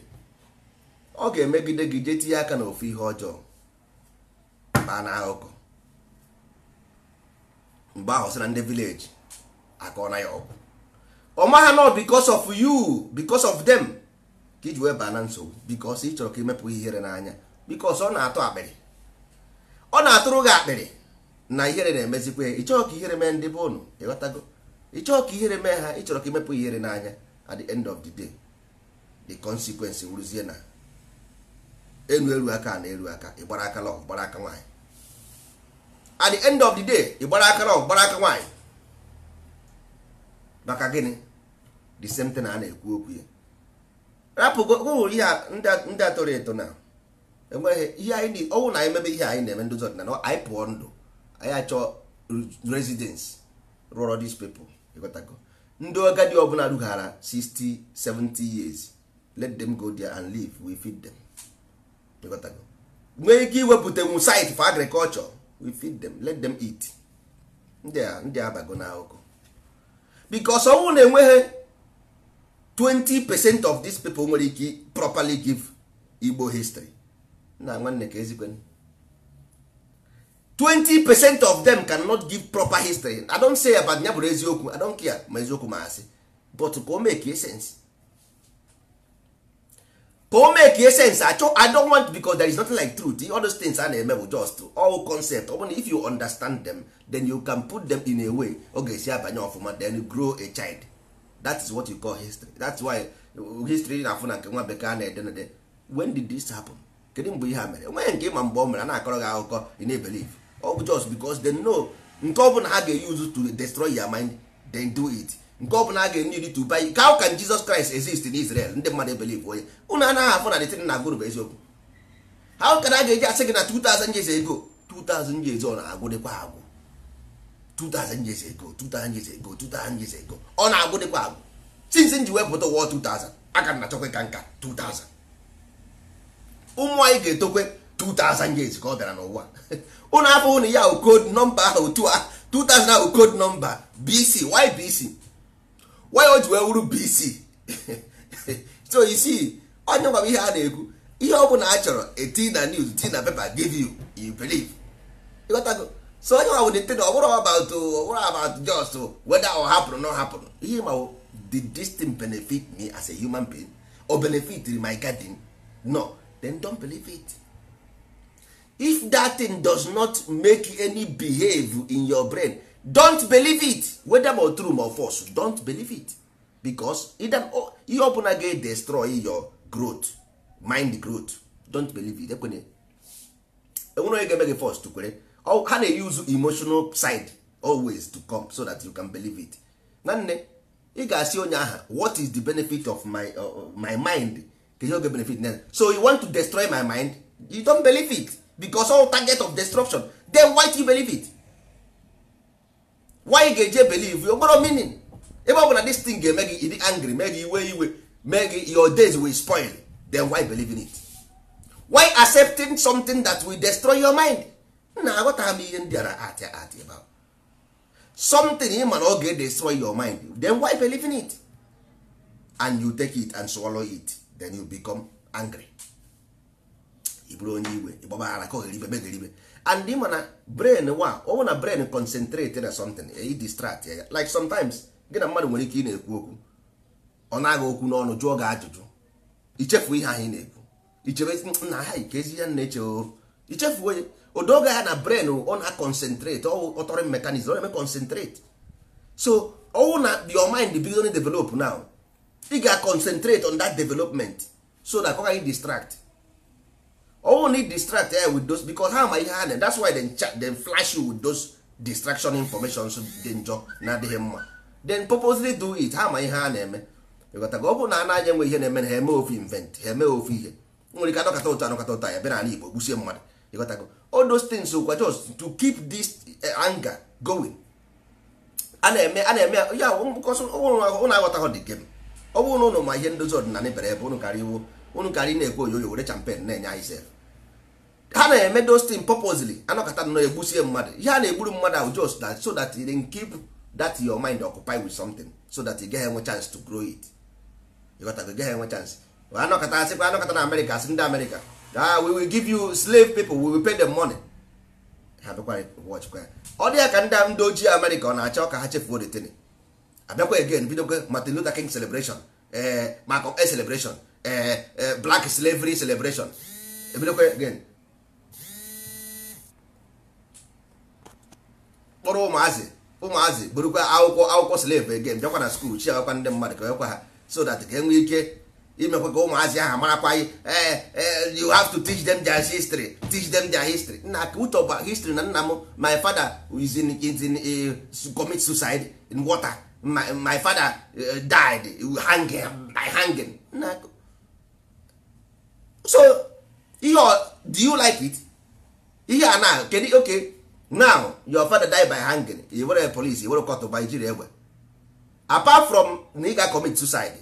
ọ ga-emegide gị jee tinye aka n'ofe ihe ọjọọ kpaa na ahụkọ mgbe ahụ sị na ndị vileji akọ na ya ọgwụ ọ maghị nọ because of yu because of dem ka iji wee baa na nsogbu because ị chọrọ ka imepụ ihere n'anya because ọ na-atụ akpịrị ọ na-atụrụ gị akpịrị na ihere na-emezikwa ya ịchọọ ka ihere mee ndị be ụnụ ịghọtago ịchọọ ka ihere mee ha ịchọrọ ka imepụ ihere n'anya at the end of the day the consequence wuruzie na elu aka na elu aka ịgbara aka lọ gbara aka nwaanyị at the end of the day ịgbara aka lọ gbara aka nwaanyị maka gịnị the same thing a na-ekwu okwu ya rapụgohụrụ ihe ndị atọrọ eto na enweghị ihe anyị ọnwụ na anyị mebe ihe anyị na-eme ndozi ọdịnala anyị pụọ ndụ anyị achọọ residence rụọrọ these people ịghọtago ndị ọ bụla rughara 60 70 years let them go there and live we feed them. nwee ike iwepụtanwu site for agriculture we feed them let them eat ndị abago na ahụkụ bikos ọnwụ na-enweghị 20 percent of these people nwere ike properly give Igbo history na nwanne ka ezigbo 20 percent of them cannot give proper history I don't say about ya bụrụ eziokwu I don't care ma eziokwu ma asị but ka o make e sense ka o mee e sense achọ i don't want because there is nothing like truth all those things a na-eme bụ just all concept ọ if you understand them then you can put them in a way ọ ga-esi abanye ọfụma then you grow a child that is what you call history that's why history na-afụ na nke nwa bekee a na-ede na when did this happen kedu mgbe ihe a mere enweghị nke ịma mgbe ọ mere a na-akọrọ gị akụkọ ị na ọ bụ just because dem know nke ọ ha ga-eyuzu to destroy your mind then do it nke ọ bụla a ga-enye iri to buy how can Jesus Christ exist in Israel ndị mmadụ ebelive onye anaghị afọ na detin na agụrụ bụ eziokwu how a ga-eji asị gị na 2000 years ago 2000 years ọ na agwụ 2000 years ago 2000 years ago 2000 years ago ọ na-agwụ dịkwa agwụ since nji wepụta ụwa 2000 aka na ka nka 2000 ụmụ anyị ga-etokwe 2000 years ka ọ bịara n'ụwa na ya code nọmba ahụ 2000 ahụ code nọmba BC BC why o ji wee wuru bc so you see onye gwara ihe a na-ekwu ihe ọ bụla a chọrọ eti na news ti na paper give you you believe ịghọtago so onye nwa wụdị tin ọbụrụ about ọbụrụ about just oh, whether ọ hapụrụ na ọ hapụrụ ihe ma did this thing benefit me as a human being or benefit my garden no then don't believe it if that thing does not make any behave in your brain don't believe it whether ma true or false don't believe it because oh, ihe ọbụla ga destroy your growth mind growth don't believe it Ekwenye enwere onye ga-eme gị first kwere ha na-use emotional side always to come so that you can believe it nanne ị ga-asị onye aha what is the benefit of my, uh, uh my mind ihe oge benefit na so you want to destroy my mind you don't believe it because all target of destruction then why do you believe it why ga-eje believe ogboro meaning ebe ọ bụla this thing ga-eme gị ịdị angry mee gị iwe iwe mee gị your days will spoil then why believe in it why accepting something that will destroy your mind na aghọtaghị m ihe m bịara atị atị about ahụ something ị ma na ọ ga-destroy your mind then why believe in it and you take it and swallow it then you become angry ị bụrụ onye iwe ịgbaba ara ka oghere ibe megere and ị ma na brain wa ọ na brain concentrate na something e distract e ya like sometimes gị na mmadụ nwere ike ị na-ekwu okwu ọ na-agha okwu n'ọnụ jụọ gị ajụjụ ichefu ihe ahụ ị na-ekwu ichebe na ha ike ezi ya na-eche o ichefu onye odoge ha na brain ọ na concentrate ọ ọtọrọ mekanizm ọ na-eme concentrate so ọwụ na your mind bido develop now ị ga concentrate on that development so that ọ gaghị distract only distract ya with those because ha ma ihe ha that's why they chat dem flash you with those distraction information dị njọ na-adịghị mma then purposely do it ha ma ihe ha na-eme ịghọtago ọ bụrụ na anaghị enwe ihe na-eme na ha eme ofe invent ha eme ofe ihe nwere ike anọkọta ụtọ anọkọta ụtọ ya bịa n'ala Igbo gbusie mmadụ go all those things kwa just to keep this eh, anger going a na-eme a na-eme ya ụnụ aghọtaghị dị game ọ oh, bụrụ oh, na ụnụ ma ihe ndozi ọdịnala bere ebe ụnụ karịa iwu unu ka anyị na ekwe oyoyo were champen na-enye anyị sef ha na-eme dostin purposely anọkọta nọ egbusie mmadụ ihe a na-egburu mmadụ ahụ just that so that you e keep that your mind occupied with something so that you e get enwe chance to grow it ịghọtago gaghị enwe chance anọkọta asịkwa anọkọta na amerịka asị ndị amerịka ah we will give you slave people we will pay them money ha bịakwara wọchkwa ya ọ dị ya ka ndị ndị ojii amerịka ọ na-achọ ka ha chefuo detin abịakwa again bidokwa Martin Luther King celebration ee eh, maka celebration Eh, eh, black slavery celebration ebidokwa again kpọrọ ụmụazị ụmụazị burukwa akwụkwọ akwụkwọ slave again bịakwa na skuul chi agakwa ndị mmadụ ka ha so that ka enwee ike imekwa ka ụmụazị ahụ marakwaghị eh, you have to teach them their history teach them their history nna ka uche history na nna m my father is in, is in, uh, commit suicide in water my, my father uh, died hanging by hanging nna so ihe do you like it ihe a na kedu oke now your father die by hanging i were police i were court by jiri egbe apart from na ị ga commit suicide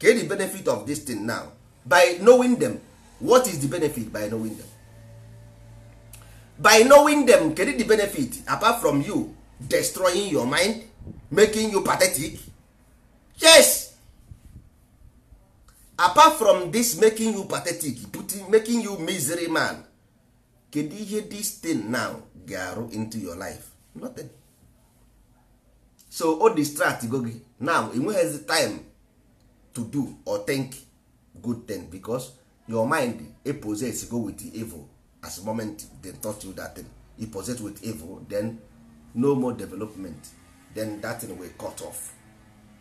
ke the benefit of this thing now by knowing them what is the benefit by knowing them by knowing them kedu the benefit apart from you destroying your mind making you pathetic yes apart from this making you pathetic putting, making you misery man kedu ihe this thing now ga-arụ into your life nothing so o distract go gị now enweghịzi time to do or think good thing because your mind e possess go with the evil as moment they taught you that thing e possess with evil then no more development then that thing will cut off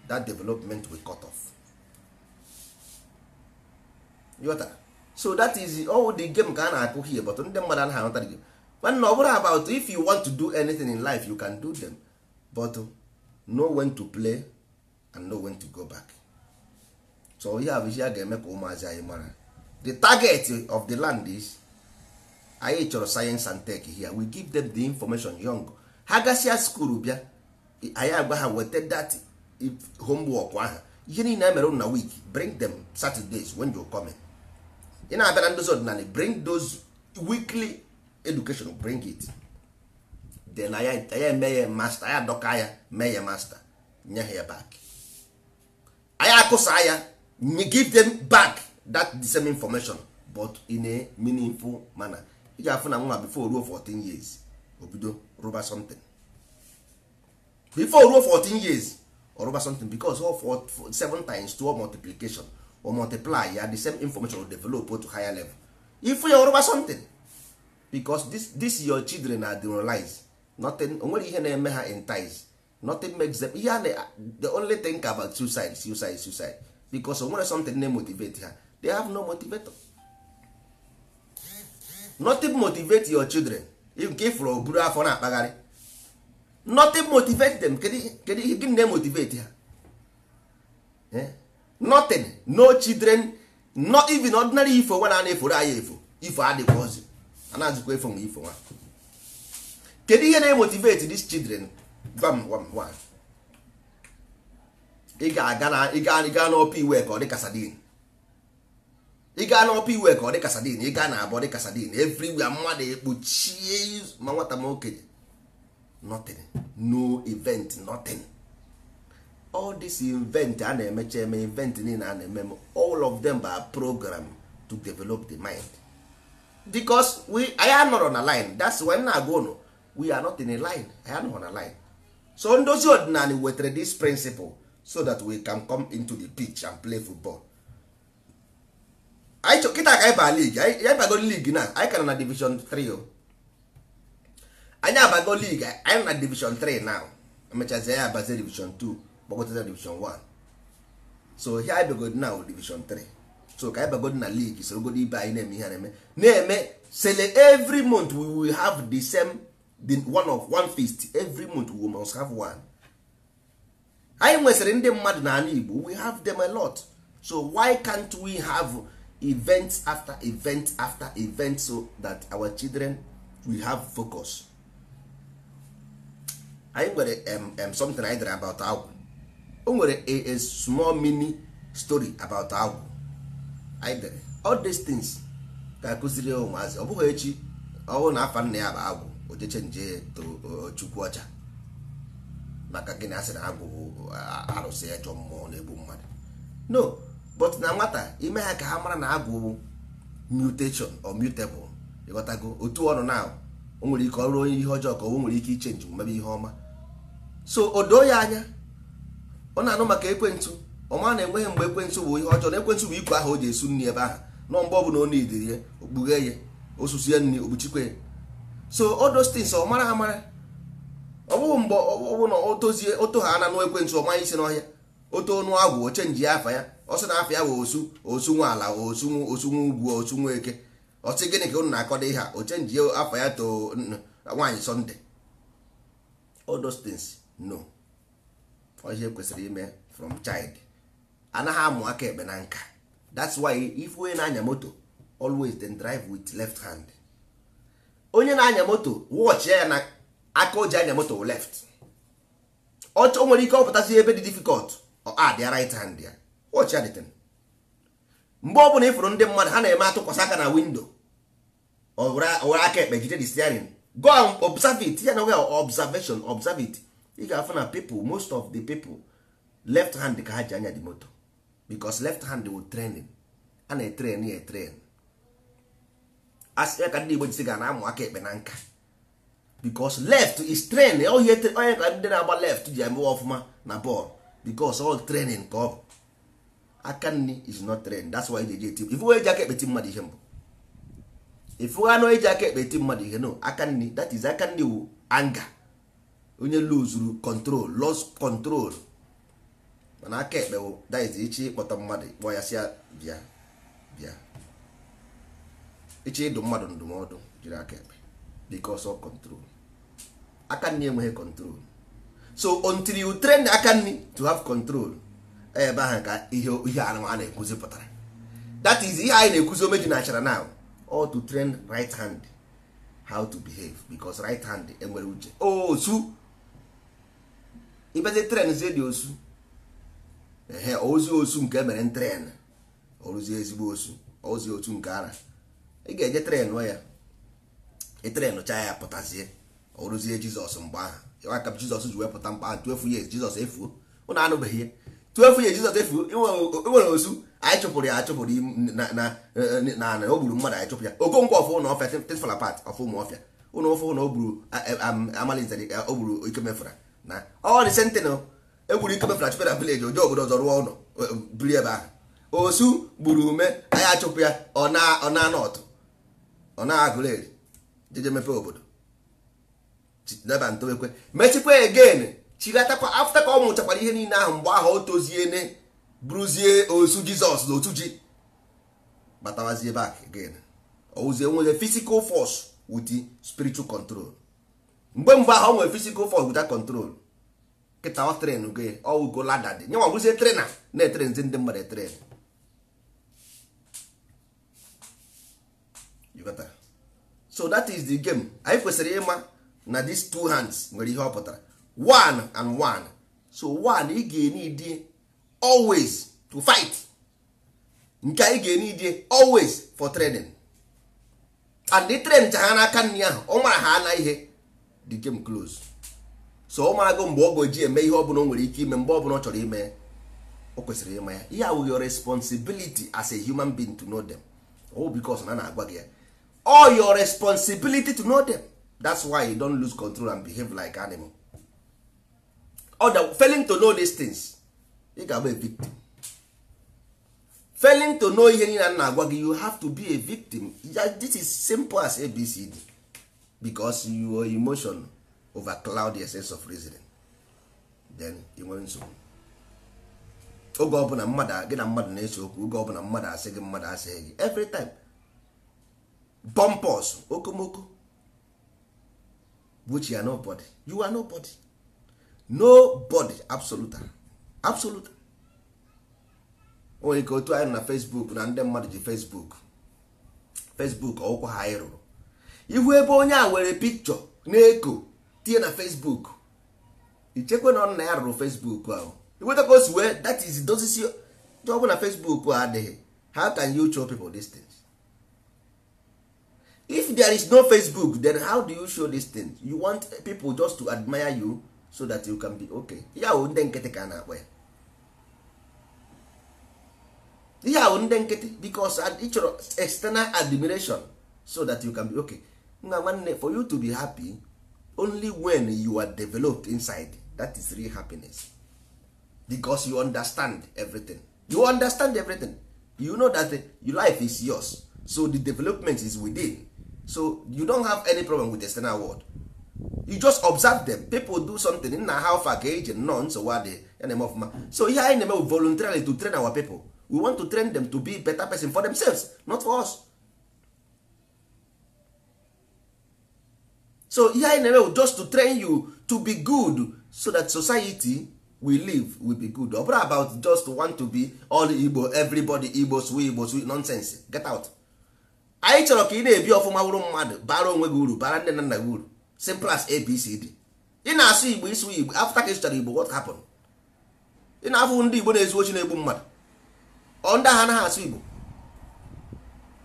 that development will cut off yota so that is all the game ka a na-akụ here but ndị mmadụ anaghị aghọta gị mana ọ bụrụ about if you want to do anything in life you can do them but know when to play and know when to go back so ihe a bụ ihe a ga-eme ka ụmụazị anyị mara the target of the land is anyị chọrọ science and tech here we give them the information young ha gasịa skuul bịa anyị agwa ha weta that homework ahụ ihe niile a e mere na week bring them Saturdays when you come in. ị na-abịa na ndozi ọdịnala bring those weekly education bring it then ya eme ya master ya dọka ya mee ya master nye ha ya back anya akụsa ya give them back that the same information but in a meaningful manner ị afụ na nwa before ruo 14 years obido rụba something before ruo 14 years or rụba something because all 7 times 2 multiplication or multiply ya the same information will develop to higher level if you are over something because this, this your children are demoralized nothing onwere ihe na-eme ha entice nothing makes them ihe a the only thing about suicide suicide suicide because onwere something na-emotivate ha they have no motivator nothing motivate your children nke ifụrụ oburu afọ na-akpagharị nothing motivate them kedu ihe gịnị na-emotivate ha eh? notin no children not even ordinary ifo nwa na-eforo anya efo ifo adịkwa ozi anazikwa efo nwa ifo nwa kedu ihe na-emotivate these children gwam gwam gwam ị ga-aga na ị gaa n'ọpa iwe ka ọ dị ka sadin ị gaa n'ọpa iwe ka ọ dị ka sadin ị gaa na abọ dị ka sadin everywhere mmadụ ekpuchie ma nwata ma okenye nothing no event nothing all this invent a na-emecha eme invent niile a na-eme all of them ba program to develop the mind because we anyị anọrọ na line that's why na-agụ ụnụ we are not in a line anyị anọrọ na line so ndozi ọdịnala wetara this principle so that we can come into the pitch and play football anyị chọ kịta ka anyị baa league bago league na anyị ka na division 3 o anyị abago league anyị na division 3 now emechazi ya abazie division 2 kpọgotere division 1 so ihe anyị na division 3 so ka anyị bagod na league sorogod ibe anyị na-eme ihe na-eme na-eme sele every month we will have the same the one of one feast every month we must have one anyị nwesịrị ndị mmadụ n'ala Igbo we have them a lot so why can't we have events after events after events so that our children will have focus anyị nwere um, um, something I dere about agwụ o nwere a small mini story about agwụ anyị dere all these things ka akụziri ụmụazị ọ bụghị echi ọhụụ na afa nna ya bụ agwụ ojeche nje chukwu ọcha maka gị asị na agwụ arụsị ya mmụọ na-egbu mmadụ no but na nwata ime ha ka ha mara na agwụ mutation or mutable ịghọtago otu ọnụ na o nwere ike ọrụ onye ihe ọjọọ ka o nwere ike ichenji mebe ihe ọma so o doo ya anya ọ na-anụ maka ekwentụ ọma na-enweghị mgbe ekwentụ bụ ihe ọjọọ na ekwentụ bụ ikwe ahụ o ji esu nri ebe ahụ nọ mgbe ọ bụla ọ na-ediri ya okpughe ya osusu ya nri okpuchikwe ya so odostins ọ mara amara ọ bụghị mgbe ọ bụ na o tozie oto ha na anụ ekwentụ ọma isi n'ọhịa oto ọnụ agwụ ochenji afa ya ọsị na afa ya bụ osu osu nwa ala osu osu nwe ugwu osu nwa eke ọsị gịnị ka unu na-akọda ihe a ochenji afa ya too nwaanyị sọnde odostins no ihe kwesịrị ime from child anaghị amụ aka ekpe na nka that's why if onye na-anya moto always then drive with left hand onye na-anya moto watch ya na aka o ji anya moto left ọ nwere ike ọpụtasị ebe dị difficult ọ dị right hand ya watch ya dịtịn mgbe ọ bụla ịfụrụ ndị mmadụ ha na-eme atụkwasị aka na windo owere aka ekpe jide the steering go observe it ya na observation observe it ị ga-afụ na people most of the people left hand ka ha ji anya dị moto because left hand will training a na-etren ya etren asịa ka ndị Igbo jisi ga na-amụ aka ekpe na nka because left is training. train onye ka ndị na-agba left ji emewe ọfụma na bọọlụ because all training ka ọ bụ aka nri is not training. that's why e eji eti ifu eji aka ekpeti mmadụ ihe mbụ ifu anụ eji aka ekpeti mmadụ ihe no aka nri that is aka nri wu anga onye luzuru kọntrol los kọntrol mana aka ekpe bụ daiz ichi ịkpọta mmadụ kpọọ ya si bịa bịa ichi ịdụ mmadụ ndụmọdụ jiri aka ekpe because of aka nri enweghị kọntrol so until you train the aka nri to have control e ebe ahụ ka ihe ihe a na-ekwuzi pụtara that is ihe anyị na-ekwuzi omeji na achara now or to train right hand how to behave because right hand enwere uche o oh, su ịbazie tren zie dị osu ehe ozi osu nke emere tren oruzie ezigbo osu ozi otu nke ara ị ga-eje tren ya ịtrenụ chaa ya pụtazie oruzie jizọs mgbe ahụ aka jizọs ji wepụta mgbe ahụ tuefu ya jizọs efuo ụnụ anụbeghị ihe tuefu ya jizọs efuo enwere osu anyị chụpụrụ ya achụpụrụ na na o gburu mmadụ anyị chụpụ ya okonkwo ọfụ ụlọ ọfịa tefala pat ọfụ ụmụ ọfịa ụlọ ọfụ ụlọ o gburu amalizari o gburu ikemefura na ọ dị sentinel egwuru ike mefere achụpụra vileji oje obodo ọzọ rụọ ụlọ e, e, biri ebe ahụ osu gburu ume anyị achụpụ ya ọ na nọtụ ọ na agụleri jeje mepe obodo deba ntowekwe mechikwa egen chilatakwa afta ka ọ mụchakwara ihe niile ahụ mgbe ahụ o toziene bụrụzie osu jizọs na otu ji batawazie bak again owuzie nwere physical force wit spiritual control mgbe mgbe ahụ nwere physical force without control kịta ọ tren gị ọwụgo lada dị nye nwagwụzie trena na-etre nzi ndị mmadụ etren so that is the game anyị kwesịrị ịma na these two hands nwere ihe ọ pụtara one and one so one ị ga-enidi always to fight nke anyị ga-enidi always for training and the train cha ha n'aka nri ahụ ọ mara ha ana ihe the game close so ụmụagụ mgbe ọ ga-eji eme ihe ọbụla o nwere ike ime mgbe ọbụla ọ chọrọ ime o kwesịrị ịma ya ihe awụghị your responsibility as a human being to know them oh because na na-agwa gị ya all your responsibility to know them that's why you don't lose control and behave like animal other failing to know these things ị ga-agba a victim failing to know ihe niile na agwa gị you have to be a victim this is simple as abcd because your emotion overcloud di essence of reasoning then ị nwere nsogbu oge ọbụla mmadụ gị na mmadụ na-ese okwu oge ọbụla mmadụ asị gị mmadụ asị gị every time bumpers okomoko which you are nobody you are nobody nobody absolute absolute o nwere ike otu anyị na Facebook na ndị mmadụ ji Facebook Facebook ọkwa ha anyị rụrụ ihu ebe onye a nwere pikchọ na-eko tinye na facebook ichekwa na nna ya rụrụ facebook ahụ iweta ka o si wee that is dozisi ọ bụ na facebook adịghị how can you show people dis things if there is no facebook then how do you show dis things you want people just to admire you so that you can be okay ihe ahụ ndị nkịtị ka na-akpọ ya ihe ahụ ndị nkịtị because ịchọrọ external admiration so that you can be okay nna nwanne for you to be happy only when you are developed inside that is real happiness because you understand everything you understand everything you know that uh, your life is yours so the development is within so you don't have any problem with the external world you just observe them people do something nna ha fa ka eji nnọọ nsogbu adị ya na-eme ọfụma so ihe anyị na-eme voluntarily to train our people we want to train them to be better person for themselves not for us so ihe anyị na-eme just to train you to be good so that society we live will be good ọ bụrụ about just want to be all igbo everybody igbo swe igbo swe nonsense get out anyị chọrọ ka ị na-ebi ọfụma wụrụ mmadụ bara onwe gị uru bara nne na nna gị uru simple as abcd ị na-asụ igbo ịsụ igbo afta ka ịsụchara igbo what happened ị na-afụ ndị igbo na-ezu ochi na-egbu mmadụ ọ ndị ha anaghị asụ igbo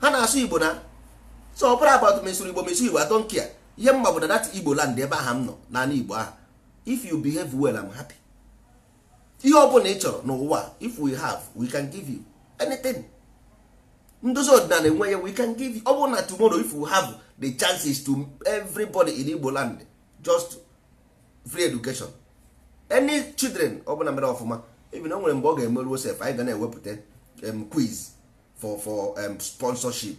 ha na-asụ igbo na so ọ bụrụ about mesụrụ igbo mesụ igbo I don't care ihe mgba obodo dat igbo land ebe aha m nọ naanị igbo aha if you behave well I'm happy ihe ọ bụla ị chọrọ n'ụwa if we have we can give you anything ndozi ọdịnala enwe ya we can give you ọ bụrụ na tomorrow if we have the chances to everybody in igbo land just free education any children ọ bụla mere ọfụma even o nwere mgbe ọ ga-emeruo sef anyị ga na-ewepụta quiz for for sponsorship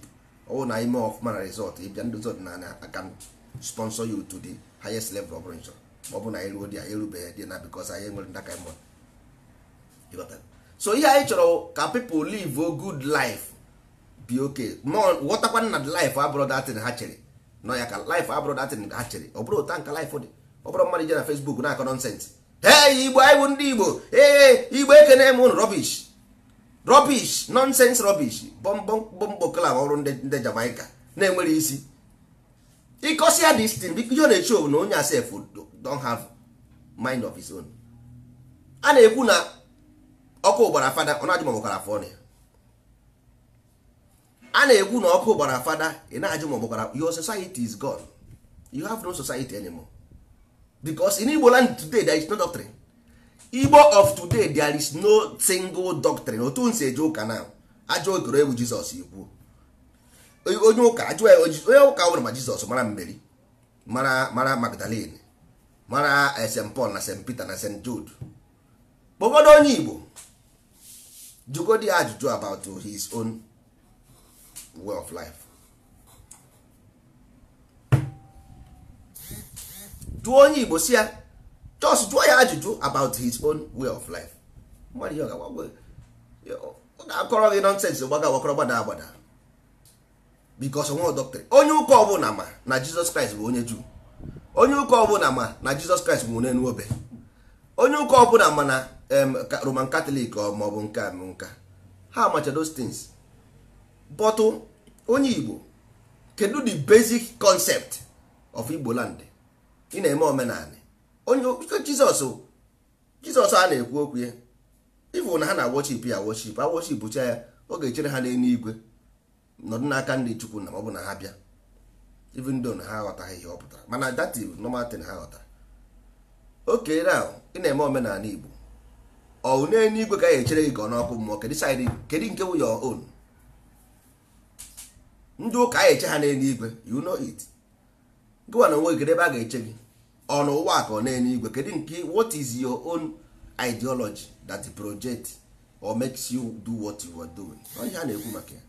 ọ bụ na ime ọfụma na result ịbịa ndozi ọdịnala akaụntụ sponsor you to the highest level ọ bụrụ ma ọ bụ na anyị ruo dị anyị erubeghị dị na because anyị nwere ndaka mmụọ so ihe anyị chọrọ ka people live a good life be okay ghọtakwana na life abụrụ datin ha chere nọ ya ka life abụrụ datin ha chere ọ bụrụ ụta nka life dị ọ bụrụ mmadụ ije na Facebook na-akọ nọnsensị Ee igbo anyị bụ ndị igbo ee igbo ekene m ụnụ rubbish rubbish nonsense rubbish bọmbọkla ọrụ ndị Jamaica na-enwere isi ịkọsi ya this thing biko ihe na-eche na onye asef don have mind of his own a na-ekwu na ọkụ gbara fada ọ na-ajụ ma afọ ọnụ ya a na-ekwu na ọkụ gbara fada ị na-ajụ ma your society is gone you have no society anymore because in Igbo land today there is no doctrine Igbo of today there is no single doctrine otu nsi eje ụka na ajọ okoro egwu Jizọs ikwu onye ụka ajụ onye ụka nwere ma jizọs mara mmeri mara mara magdalene mara eh, st paul na st peter na st jude kpọgodo onye igbo jugodi ajụjụ about his own way of life jụọ onye igbo si ya just jụọ ya ajụjụ about his own way of life mmadụ ihe ọ ga-akọrọ gị nọnsensị gbaga agbakọrọ gbada agbada because onwe doctrine onye ụka ọbụla ma na jizọs kraịst bụ onye juu onye ụka ọbụla ma na jizọs kraịst bụ onye nwobe onye ụka ọbụla ma na roman katọlik ma ọ bụ nke nka ha macha those things but onye igbo kedu the basic concept of igbo land ị na-eme omenala onye jizọs jizọs a na-ekwu okwu ya ịbụ na ha na-awochip ya awochip awochip bụcha ya ọ ga-echere ha n'elu igwe nọdụ n'aka ndị chukwu na ọ bụ na ha bịa even though na ha aghọtaghị ihe ọ pụtara mana that is normal thing ha ghọtara oke ahụ ị na-eme omenala Igbo ọwụ n'eluigwe ka ya echere gị ka ọ n'ọkụ mmụọ kedu nke wụ your own ndị ụka a eche ha n'eluigwe you know it gụwa na onwe kedu ebe a ga-eche gị ọ na ụwa ka ọ na n'eluigwe kedu nke what is your own ideology that project or makes you do what you are doing ọ ihe a na-ekwu maka ya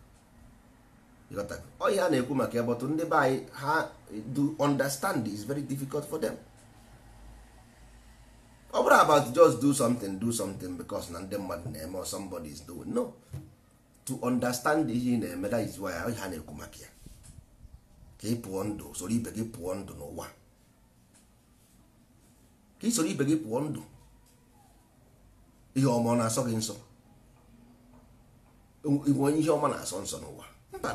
ọhịa a na-ekwu maka ya bọtụ ndị be anyị ha do understand is very difficult for them ọ oh, bụrụ about just do something do something because na ndị mmadụ na-eme or somebody is doing no to understand ihe ị na-eme that is why ọhịa na-ekwu maka ya ka ị pụọ ndụ soro ibe gị pụọ ndụ n'ụwa ka ị soro ibe gị pụọ ndụ ihe ọma na-asọ gị nsọ ihe ọma na-asọ nsọ n'ụwa mba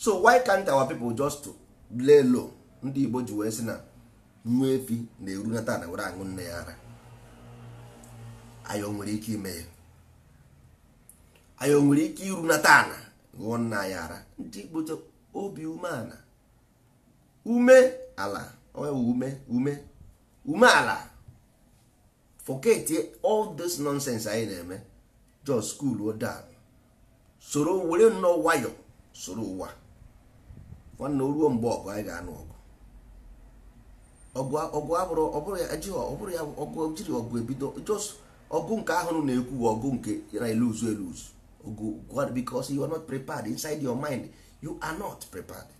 so why can't our people just lay low ndị igbo ji wee sị na nwa efi na-erunata na were aṅụ nne ya ara anyị nwere ike ime ya anyị nwere ike irunata ana ṅụọ nna anyị ara ndị igbo obi umeala ume ala ume ume ume ala forget all this nonsense anyị na-eme just cool down soro were nnọọ nwayọ soro ụwa nwanne ruo mgbe ọgụ anyị ga-anụ ọgụ ọgụ abụrụ ọbụrụ ya ọgụ jiri ọgụ ebido jos ọgụ nke ahụ na-ekwu ọgụ nke na eluzu eluzu ọgụ because you are not prepared inside your mind you are not prepared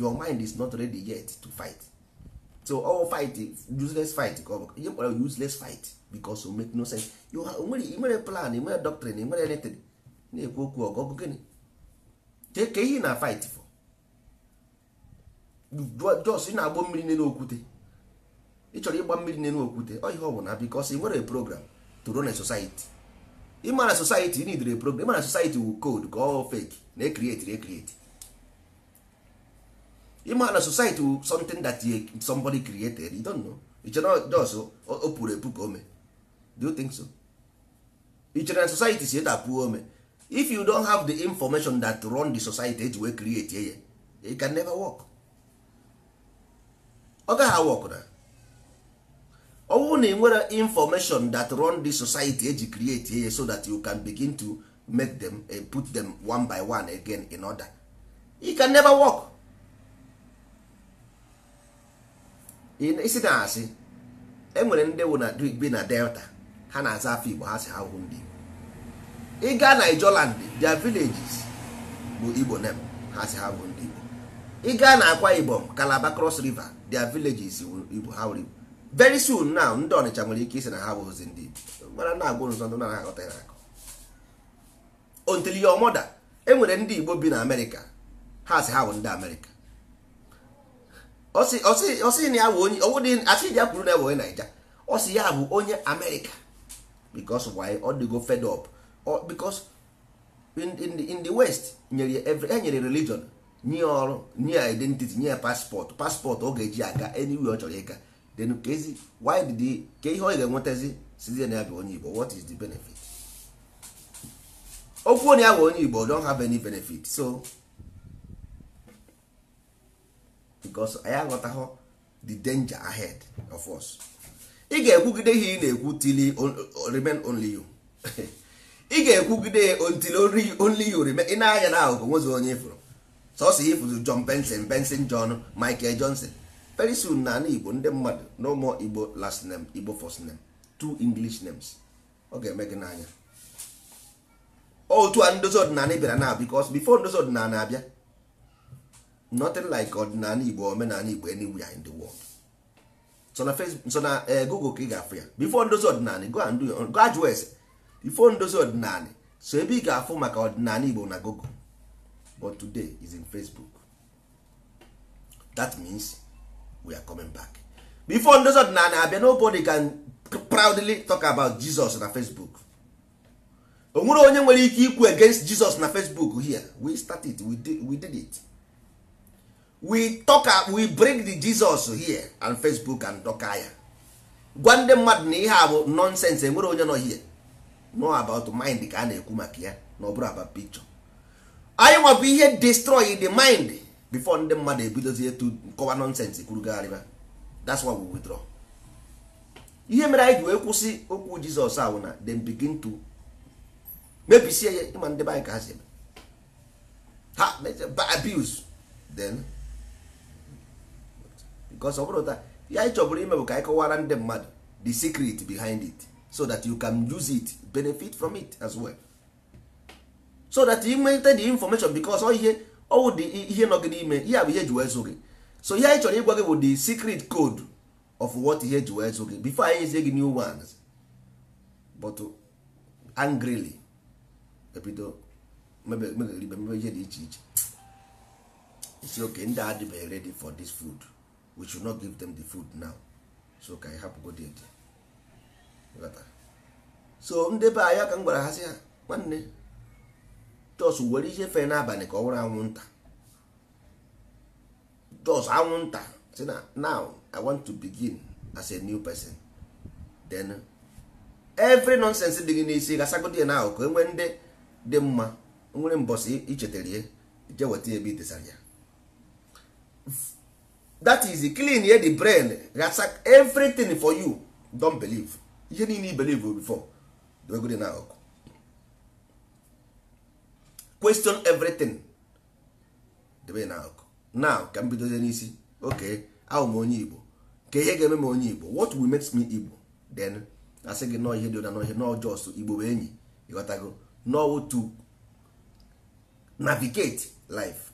your mind is not ready yet to fight so all fight useless fight ka ọ bụ ihe kpọrọ useless fight because o make no sense you nwere nwere plan nwere doctrine nwere anything na-ekwu okwu ọgụ ọgụ gịnị ka ihe na fight jos ị na-agbọ mmiri n'elu okwute ị chọrọ ịgba mmiri n'elu okwute ọ ọ bụ na bikos ị nwere program to run a society ịmara society ị nidere program ịmara society wu code ka ọ fake na ekrieti ekrieti ịmara na e society wu something that somebody created you don't know ị chere jos o pụrụ epu ka ome do you think so ị na society si edapụ ome if you don't have the information that run the society eji wee create ye it can never work. ọ gaghị awụ ọkụna ọ na ị nwere information that run the society eji create ya so that you can begin to make them eh, put them one by one again in order you can never work isi na asị enwere ndị na bi na delta ha na-aza afọ igbo ha si ha hụ ndị igbo ịga Nigeria their villages bụ igbo nem ha si ha hụ ndị igbo ịga na Akwa Ibom Calabar Cross River their villages iwu ha were very soon now ndị ọnịcha nwere ike isi na ha bụzi ndị igbo mara na agwụ nzọ ndị na-aghọta ya akọ until your mother e nwere ndị igbo bi na amerịka ha si ha bụ ndị amerịka ọsị na ya bụ onye ọwụdị asị dị ya kwuru na ya bụ onye naija ọ ya bụ onye amerịka because why ọ dịgo fed up because in, in, in the west nyere every e nyere religion nye ọrụ nye identity nye paspọtụ paspọtụ ọ ga-eji aga enyiwe ọ chọrọ ịga then kezi why did ka ihe ọ ga-enwetazi sizie na ya bụ onye Igbo what is the benefit okwu na ya bụ onye Igbo don't have any benefit so because anyị aghọtaghọ the danger ahead of us ị ga-ekwugide ihe ị na-ekwu till remain only you ị ga-ekwugide till only you remain ị na-anya na ahụhụ nwezi onye ịfụrụ sọsọ ifụzụ John Benson Benson John Michael Johnson very soon na ana Igbo ndị mmadụ no more Igbo last name Igbo first name two English names ọ ga-eme gị n'anya otu a ndozi ọdịnala bịara na because before ndozi ọdịnala abịa nothing like ọdịnala Igbo omenala Igbo anywhere in the world so na eh, Google ka ị ga-afụ ya before ndozi ọdịnala go and do your go ajụọ ese before ndozi ọdịnala so ebe ị ga-afụ maka ọdịnala Igbo na Google but today is in facebook that means we are coming back before ndozi ọdịnala abịa nobody can proudly talk about jesus na facebook o nwere onye nwere ike ikwu against jesus na facebook here we start it we did, we did it we talk uh, we bring the jesus here and facebook and doka ya gwa ndị mmadụ na ihe a bụ nonsense enwere onye nọ here no about mind ka a na-ekwu maka ya na ọ bụrụ about picture anyị nwabụ ihe destroy the mind before ndị mmadụ ebidozie to kọwa nonsense kwurugharịba that's why we withdraw ihe mere anyị ji wee kwụsị okwu jizọs ahụ na then begin to mebisie ya ịma ndị anyị ka ha si eme ha abuse then because ọ bụrụ ta ya anyị chọbụrụ ime bụ ka anyị kọwara ndị mmadụ the secret behind it so that you can use it benefit from it as well. so that ị nweta the information because ọ ihe ọwụ dị ihe nọ gị n'ime ihe bụ ihe ji wee zụ gị so ihe anyị chọrọ ịgwa gị bụ the secret code of what ihe ji wee zụ gị before anyị zie gị new ones but angrily ebido mebe ihe dị iche iche isi oke ndị adịbeghị ready for this food we should not give them the food now so ka anyị hapụ go so ndị be anyị ka m gwara ha sị ha nwanne jos were ihe fe n'abalị ka ọ nwụrụ anwụnta jos anwụnta si na now i want to begin as a new person then every nonsense dị gị n'isi gasagodi na ahụ ka enwe ndị dị mma nwere mbọsị ichetara ihe je weta ebe itesara ya that is clean ye the brain gasak everything for you don believe ihe niile i believe before dwegodi na ahụ question everything debe na akụ now ka m bidozie n'isi oke ahụ m onye igbo ka ihe ga-eme m onye igbo what will make me igbo then asị gị nọọ ihe dị ụda nọ jos igbo bụ enyi ịghọtago nọọ to navigate life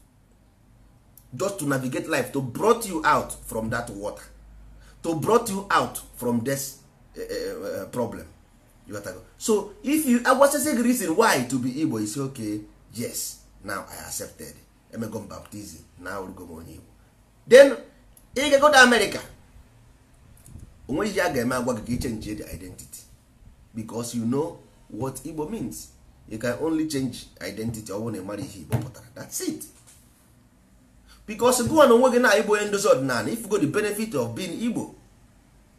just to navigate life to brought you out from that water to brought you out from this uh, uh, problem ịghọtago so if you agwasịsị gị reason why to be igbo is okay. yes now i accepted Emegom baptizim na awụrụgo onye igbo then ị ga to America onwe ihe a ga-eme agwa gị change ichenji the identity because you know what igbo means you can only change identity ọ bụrụ na ị mara ihe igbo pụtara that's it because gụwa na onwe gị na igbo onye ndozi ọdịnala go the benefit of being igbo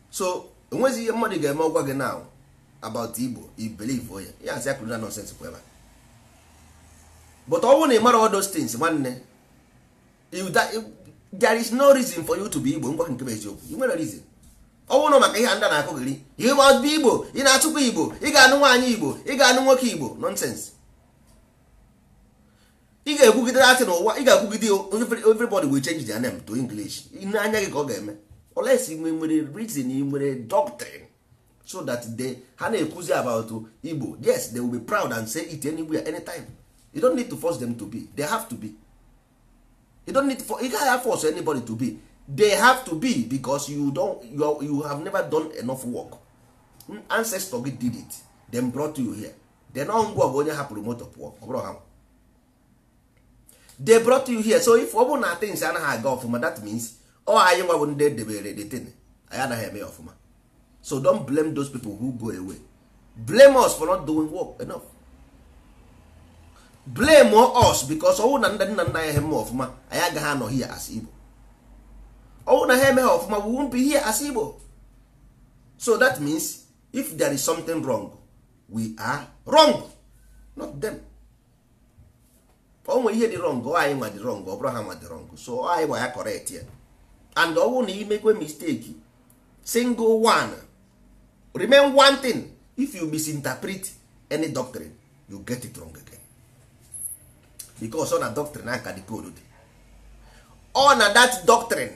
so onwe ihe mmadụ ga-eme ọgwa gị now about igbo you believe onye ya as akụrụ na nonsense kwa but ọ na ị mara all those nwanne eh, there is no reason for you to be igbo ngwa nke eziokwu reason ọ bụrụ maka ihe ndị na-akụ gịrị ihe ọ igbo ị na-atụkwa igbo ị ga-anụ nwaanyị igbo ị ga-anụ nwoke igbo nonsense ị ga-ekwugide asị n'ụwa ị ga-ekwugide everybody will change their name to english gị ka ọ ga-eme unless nwere ị nwere doctrine so that they ha na-ekwuzi about igbo yes they will be proud and say you don't need to force them to be they have to be you don't need to you can't force anybody to be they have to be because you don't you, are, you have never done enough work hmm, ancestor gị did it them brought you here then ọ ngwa bụ onye hapụrụ moto pụọ ọ bụrụ ha they brought you here so if ọ bụrụ na things anaghị aga ọfụma that means ọ anyị nwa bụ ndị edebere the thing anyị anaghị eme ọfụma so don't blame those people who go away blame us for not doing work enough blame us because ọnwụ na nna nna nna anyị eme ọfụma anyị agaghị anọ hie as Igbo ọnwụ na ha ha ọfụma we won't be here as Igbo so that means if there is something wrong we are wrong not them onwe ihe dị wrong ọ anyị nwa dị wrong ọ bụrụ ha nwa dị wrong so anyị gwa ya correct ya and ọnwụ na imekwe mistake single one remain one thing if you misinterpret any doctrine you get it wrong again. because ọ na doctrine aka dị koodu dị ọ na dat doctrine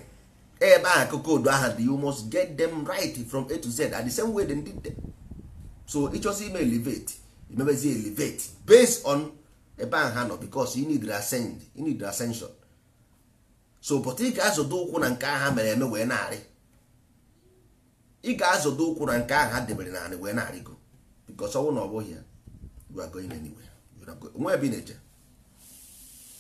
ebe ahụ ka koodu aha dị you must get them right from a to z at the same way did dem so ịchọzi ime elevate imebezi elevate based on ebe ahụ ha nọ because you need ascend so but ị ga-azọdo ụkwụ na nke ahụ mere eme wee narị ị ga-azọdo ụkwụ na nke ahụ ha debere narị wee go because ọnwụ na ọ bụghị ya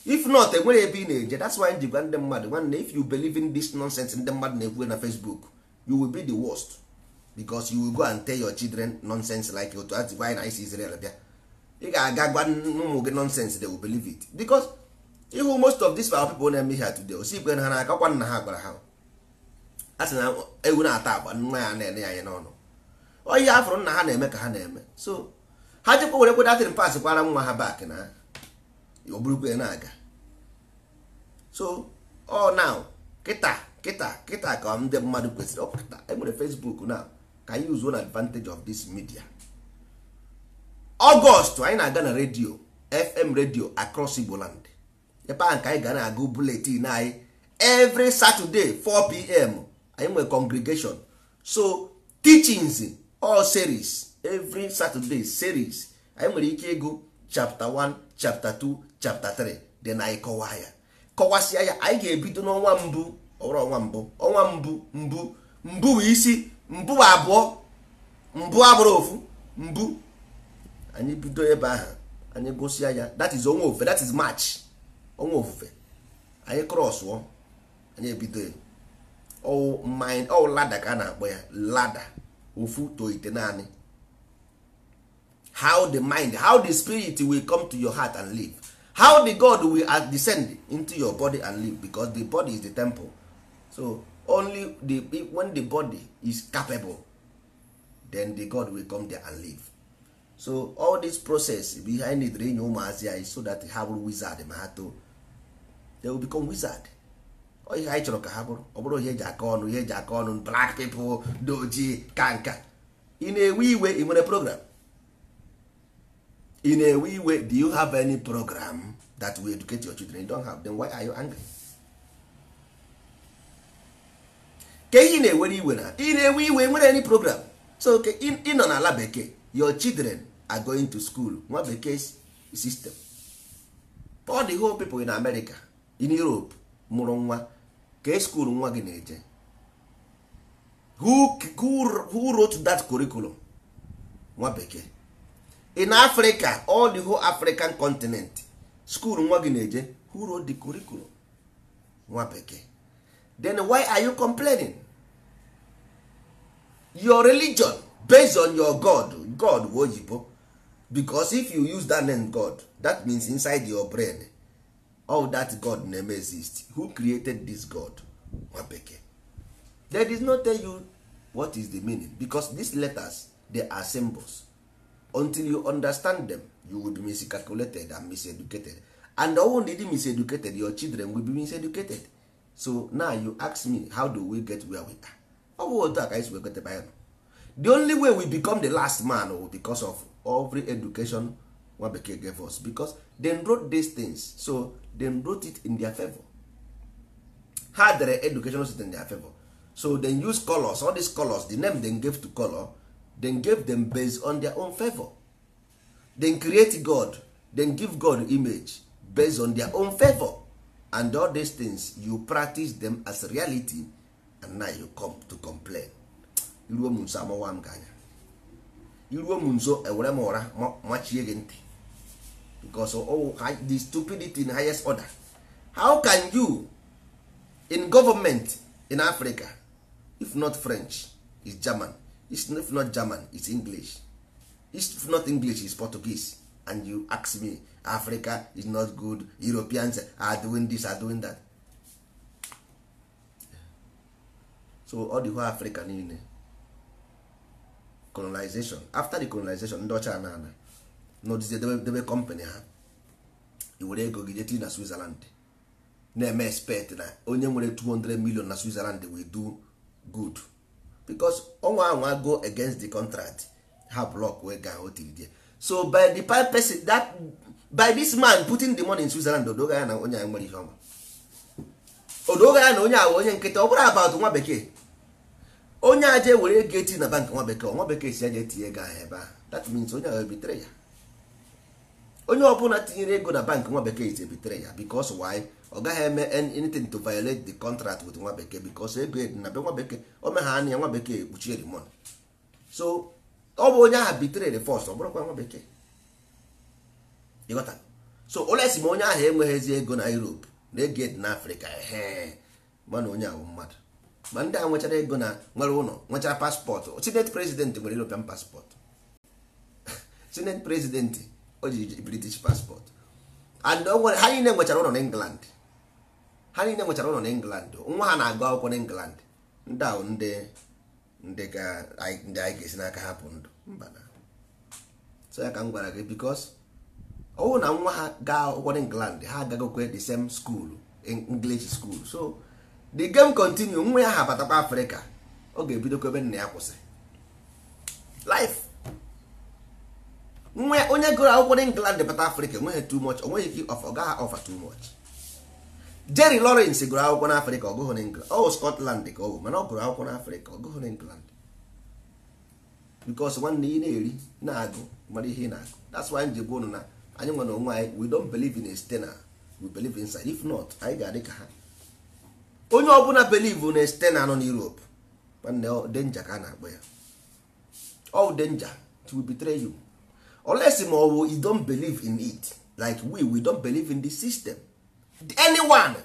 if not enwere ebe ị na-eje that's why ji gwa ndị mmadụ nwanne if you believe in this nonsense ndị mmadụ na-ekwu na Facebook you will be the worst because you will go and tell your children nonsense like otu a gwa na isi Israel bịa ị ga-aga gwa ụmụ gị nonsense they will believe it because ihu most of these our people na-eme ha today osi ikwe na ha na-aka kwa nna ha gwara ha a sị na ewu na-ata agba nwa ya na-ene ya anya n'ọnụ oyi afụrụ nna ha na-eme ka ha na-eme so ha jikwa were kwedatịrị pas kwara nwa ha bak na ọ bụrụkwa na-aga so ọ now kịta kịta kịta ka ndị mmadụ kwesịrị ọ kịta enwere Facebook na ka anyị uzuo na advantage of this media ọgọst anyị na-aga na redio fm redio across igboland ebe ahụ ka anyị ga na-agụ buletin anyị every saturday 4 pm anyị nwere congregation so teachings all series every saturday series anyị nwere ike ịgụ chapter 1 chapter 2 chapter 3 dị na anyị kọwaa ya kọwasịa ya anyị ga-ebido n'ọnwa mbụ ọwụrụ ọnwa mbụ ọnwa mbụ mbụ mbụ bụ isi mbụ abụọ mbụ abụrụ ofu mbụ anyị bido ebe ahụ anyị gụsịa ya that is ọnwa ofufe that is march ọnwa ofufe anyị krọsụọ anyị ebido ọwụ lada ka a na-akpọ ya lada ofu toite naanị how the mind how the spirit will come to your heart and live how the god will descend into your body and live because the body is the temple so only the when the body is capable then the god will come there and live so all this process behind it anyị ụmụazị anyị so that ha bụrụ wizard ma ha too they will become wizard oh, ihe anyị chọrọ ka ha bụrụ ọ bụrụ ihe eji aka ọnụ ihe eji aka ọnụ black people doji kanka in ị na-ewe iwe ị nwere program in na way iwe, do you have any program that will educate your children you don't have them why are you angry ka ị na-ewere iwe na ị na-ewe iwe nwere any program so ị nọ n'ala bekee your children are going to school nwa bekee system all the whole people in America in Europe mụrụ nwa ka school nwa gị na-eje who, who, who wrote that curriculum nwa bekee in africa all the whole african continent school nwa gị na-eje who wrote the curriculum nwa bekee then why are you complaining your religion based on your god god bụ oyibo because if you use that name god that means inside your brain all that god name exist who created this god nwa bekee they did not tell you what is the meaning because these letters they are symbols until you understand them you will be miscalculated and miseducated and ọnwụ na ịdị miseducated your children will be miseducated so now you ask me how do we get where we are ọ bụ otu a ka anyị the only way we become the last man or oh, because of every education nwa bekee gave us because dem wrote these things so dem wrote it in their favor ha dere educational sit in their favor so dem use colors all these colors the name dem gave to color then gave them based on their own favor then create god then give god image based on their own favor and all these things you practice them as reality and now you come to complain iruo m nso amawa m gị anya iruo m nso ewere m ụra machie gị ntị because the stupidity in highest order how can you in government in africa if not french is german East if not german it's english East if not english is portuguese and you ask me africa is not good europeans are doing this are doing that so the whole africa niile colonization after the colonization ndị ọcha na ana n'odizie debe company ha iwere e ego gị jeti na switzerland na-eme expect na onye nwere 200 million na switzerland will do good because ọnwa ahụ go against the contract ha block wee ga o tiri die so by the pipe person that by this man putting the money in Switzerland odoga ya na onye nwere ihe ọma odoga ya na onye awa onye nkịta ọ bụrụ about nwa bekee onye aje were ego eti na bank nwa bekee nwa bekee si aje tinye ego ahụ ebe a that means onye ahụ ebitere ya onye ọbụla tinyere ego na bank nwa bekee is ebitere ya because why ọ gaghị eme anything to violate the contract with nwa bekee because egred na be nwa bekee o me anya ya nwa bekee ekpuchie the so ọ bụ onye ahụ bitere the first ọ bụrụkwa nwa bekee ịghọta so olesi ma onye ahụ enweghịzi ego na Europe na eged na Afrịka ehe mana onye ahụ mmadụ ma ndị a nwechara ego na nwere ụlọ nwechara paspọtụ senate president nwere European paspọtụ senate president o ji British paspọtụ and ha niile nwechara ụlọ na England ha niile nwechara ụlọ na england nwa ha na-agụ akwụkwọ na england ndị ahụ ndị ndị anyị ga-esi n'aka hapụ ndụ mba na so ya ka m gwara gị bikos ọwụ na nwa ha gaa akwụkwọ na england ha agagokwe the same school english school so the game continue nwa ya ha batakwa afrịka ọ ga-ebidokwa ebe nna ya kwụsị life nwa onye gụrụ akwụkwọ na england bata afrịka enweghị too much onweghị ike ofe ọ gaghị ofe too much Jerry Lawrence gụrụ akwụkwọ n'Afrịka ọ gụghị n'England ọ Scotland ka ọ bụ mana ọ gụrụ akwụkwọ n'Afrịka ọ gụghị n'England because nwanne ị na-eri na-agụ mara ihe ị na-agụ that's why nji gwa ụnụ na anyị nwere onwe anyị we don't believe in a external we believe in inside if not anyị ga-adị ka ha onye ọbụla believe na external nọ n'Europe nwanne denja ka a na-akpọ ya all danger it will betray you unless ma ọ bụ you don't believe in it like we we don't believe in the system anyone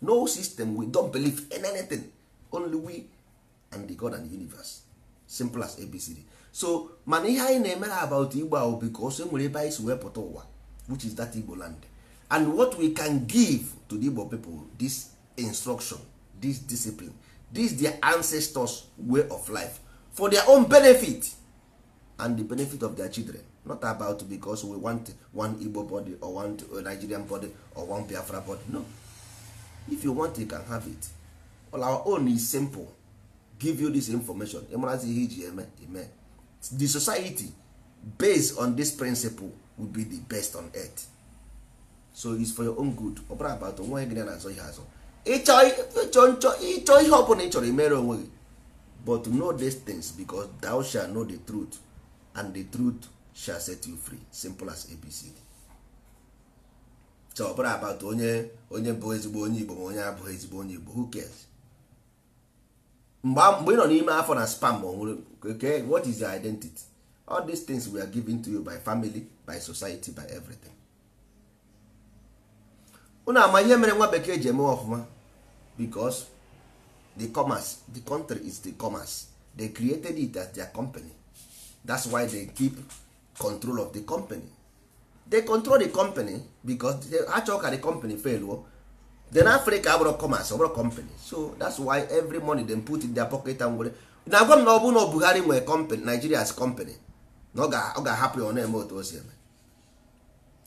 no system we don believe in anything only we and the god and the universe simple as abcd so mana ihe anyị na-emere about igbo ahụ bikos e nwere ebe anyị si wepụta ụwa which is that igbo land and what we can give to the igbo people this instruction this discipline this their ancestors way of life for their own benefit and the benefit of their children not about because we want one igbo body or one nigerian body or one biafra body no if you want you can have it all our own is simple give you this information ịmarazi ihe iji eme eme the society based on this principle will be the best on earth so is for your own good ọ bụrụ about onwe gị na-azọ ihe azọ ịchọ ihe ọbụla ị chọrọ imere onwe gị but know these things because thou shall know the truth and the truth shall set you free simple as abcd so ọ about onye onye bụ ezigbo onye igbo ma onye abụghị ezigbo onye igbo who cares mgbe ị nọ n'ime afọ na spam okay, what is your identity all these things we are given to you by family by society by everything unu ama ihe mere nwa bekee ji eme ọfụma because the commerce the country is the commerce they created it as their company that's why they keep control of the company they control the company because they achọ ka the company fail o oh? then africa abụrụ commerce ọbụrụ company so that's why every money dem put in their pocket and were na-agwa m na ọ bụ na Buhari nwere company Nigeria's company na ọ ga-ahapụ ya ọ na-eme otu o eme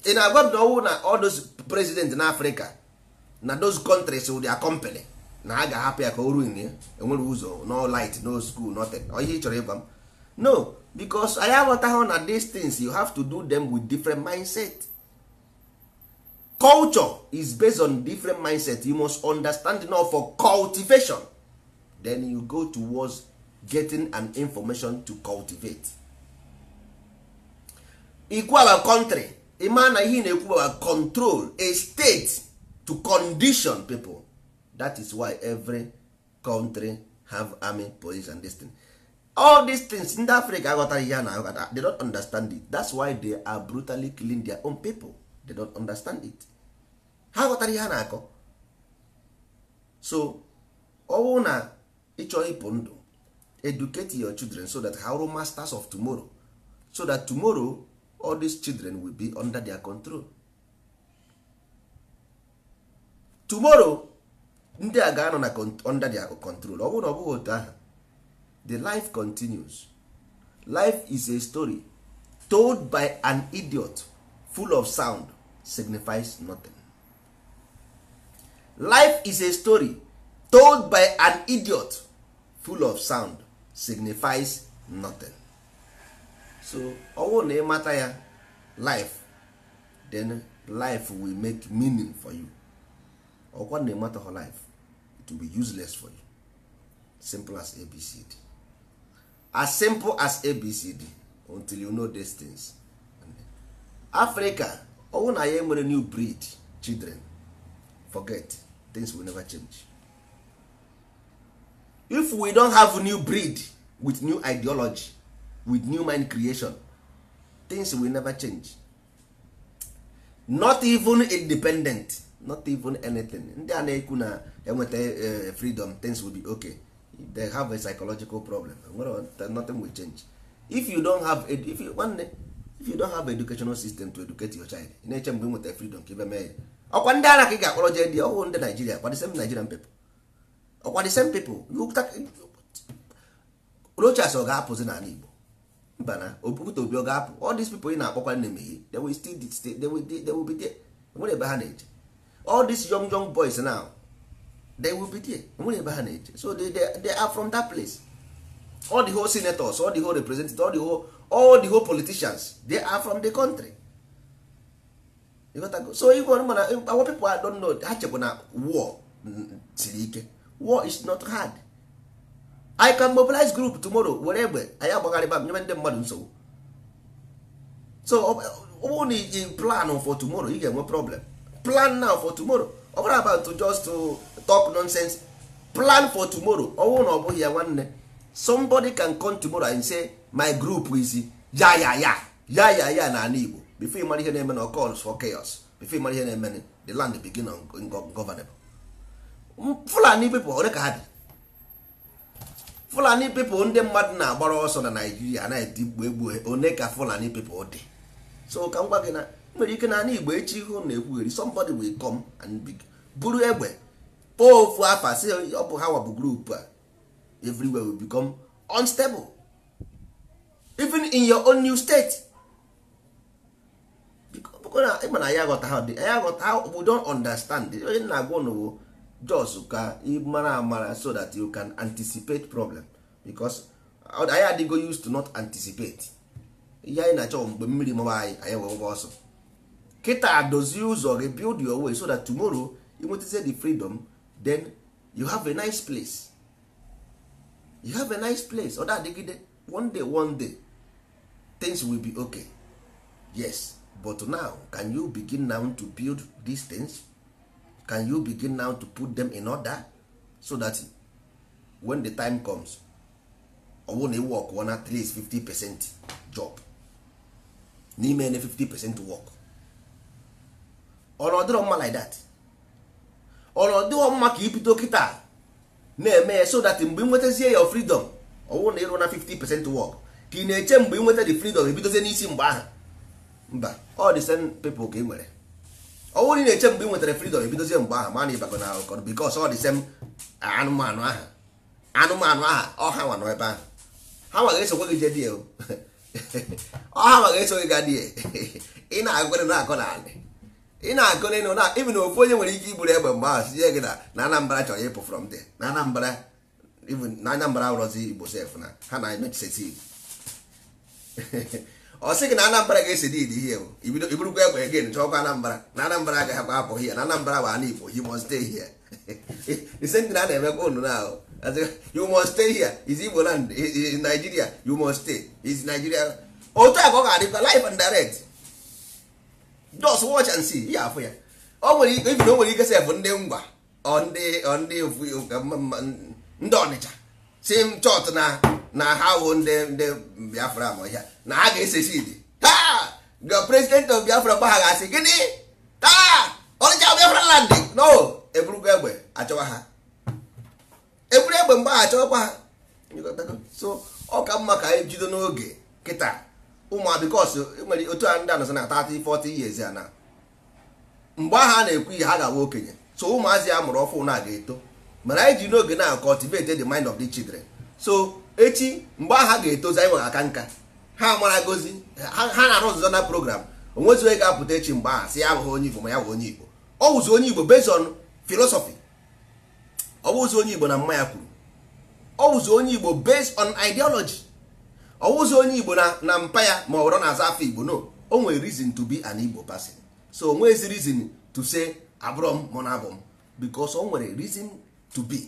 ị na-agwa m na ọwụ na all those president na africa na those countries with oh, their company na a ga-ahapụ ya ka o ruin enwere eh? ụzọ oh, no light no school nothing ihe ị chọrọ ịgwa m no because anyị aghọtaghị na these things you have to do them with different mindset culture is based on different mindset you must understand now for cultivation then you go towards getting an information to cultivate ikwu our country ịma na ihe na-ekwu our control a state to condition people that is why every country have army police and this thing. all these things ndị africa aghọtara ihe a na-aghọta they don't understand it that's why they are brutally killing their own people they don't understand it ha ghọtara ihe a na-akọ so ọwụ na ịchọ ịpụ ndụ educate your children so that ha masters of tomorrow so that tomorrow all these children will be under their control tomorrow ndị a ga-anọ na under their control ọ bụrụ na ọ bụghị otu ahụ the life continues life is a story told by an idiot full of sound signifies nothing life is a story told by an idiot full of sound signifies nothing so owo na ịmata ya life then life will make meaning for you ọkwa na ịmata life it will be useless for you simple as abcd as simple as abcd until you know these things africa ọwụ na ya enwere new breed children forget things will never change if we don have new breed with new ideology with new mind creation things will never change not even independent not even anything ndị a na-ekwu na enweta eh, freedom things will be okay they have a psychological problem nothing will change if you don't have if you nwanne if you don't have educational system to educate your child ị na-eche mgbe nweta freedom ka ibe oh, mee ya ọkwa ndị ara ka ị ga-akpọrọ jee ndị ọhụụ oh, ndị Naijiria ọkwa the same Nigerian people ọkwa oh, the same people Rochas ọ ga-apụzi n'ala Igbo mba na Okwute Obi ọ ga-apụ all these people ị na-akpọkwa na-emeghe they will still they will be there nwere ebe ha na-eje all these young young boys now they will be there nwere ebe ha na-eje so they, they, they are from that place all the whole senators all the whole representatives all the whole, all the whole politicians they are from the country so igwe mana our people don't know ha chekwa na war mm, siri ike war is not hard i can mobilize group tomorrow were egbe anyị agbagharịba nyebe ndị mmadụ nsogbu so ọ bụrụ na iji plan for tomorrow You ga-enwe problem plan now for tomorrow ọ bụrụ about just to talk nonsense plan for tomorrow ọnwụ na ọ bụghị ya nwanne somebody can come tomorrow and say my group is ya ya ya ya ya ya na ala Igbo before ịmara ihe na-eme na calls for chaos before ịmara ihe na-eme the land begin ungovernable Fulani people ole ka ha dị Fulani people ndị mmadụ na-agbara ọsọ na Naijiria anaghị egbu egbu one ka Fulani people dị so ka m gwa gị na nwere ike na ala Igbo echi ihu na-ekwugheri somebody will come and big buru egbe pụọ ofu afa si ọ bụ ha wabụ group a everywhere will become unstable even in your own new state ịma na ya aghọta ha ya aghọta ha we don't understand onye na-agwa ụnụ bụ jos ka ịmara amara so that you can anticipate problem because anyị adịgo used to not anticipate ihe anyị na-achọ mgbe mmiri mụba anyị anyị wee ụgwọ ọsọ kịta dozie ụzọ gị build your way so that tomorrow inwetazie the freedom then you have a nice place you have a nice place other na-adịgide one day one day things will be okay yes but now can you begin now to build these things can you begin now to put them in order so that when the time comes ọ work on at least 50 percent job n'ime na 50 percent work or na ọ dịrọ mma like that ọnọdụ mma ka ibido kịta na-eme ya so that mgbe ị nwetazie ya freedom ọwụ na ịrụ na 50% work ka ị na-eche mgbe ị nweta the freedom ebidozie n'isi mgbe ahụ mba ọ dị same people ka ị nwere ọwụ na ị na-eche mgbe ị nwetara freedom ebidozie mgbe ahụ mana ịbago na akọrọ because ọ dị sem anụmanụ aha anụmanụ aha ọha nwa nọ ebe ahụ ha nwa ga-esokwa gị jedie ọha nwa ga-eso gị gadie ị na-agụgara na akọ na alị ị na-agụ n'ịnụ na even ofu onye nwere ike iburu egbe mgbe ahụ sie gị na na anambra chọrọ ịpụ from there na anambra even na anambra ụrọzi igbo sef na ha na emechisi ọ sị gị na anambra ga-esi dị dị ihe ibido iburukwa egbe gị chọọkwa anambra na anambra agaghị agba apụ hie na anambra bụ ana igbo you must stay here ise ndị na na-emekwa unu na ahụ you must stay here is igbo land nigeria you must stay is nigeria otu a ka ọ ga-adịkwa live and direct just watch and see ya afụ ya o nwere ike o nwere ike sef ndị ngwa ndị ndị ọnịcha si m chọt na na ha wụ ndị ndị biafra ma ọhịa na ha ga-ese sidi taa the president of biafra gbagha asị gịnị taa ọnịcha biafra land no eburugwa egbe achọwa ha eburu egbe mgbe ha ha so ọ ka mma ka anyị e jido n'oge kịta ụmụ bikos e nwere otu a ndị anọsọ na 30 40 years a na mgbe ahụ a na-ekwu ihe ha gawa okenye so ụmụazị a mụrụ ọfụ na ga-eto mana anyị ji n'oge na cultivate the mind of the children so echi mgbe aha ga-etozi anyị nwere aka nka ha mara gozi ha na-arụ ọzụzọ na program onwezi onye ga-apụta echi mgbe aha si ya abụghị onye igbo ma ya bụ onye igbo ọ wụzi onye igbo based on philosophy ọ bụzi onye igbo na mma ya kwuru ọ wụzi onye igbo based on ideology ọwụzi onye igbo na mpa ya ma ọ na aza afọ igbo no o nwere reason to be an igbo person so o nwezi reason to say abụrọ m mụ na m because o nwere reason to be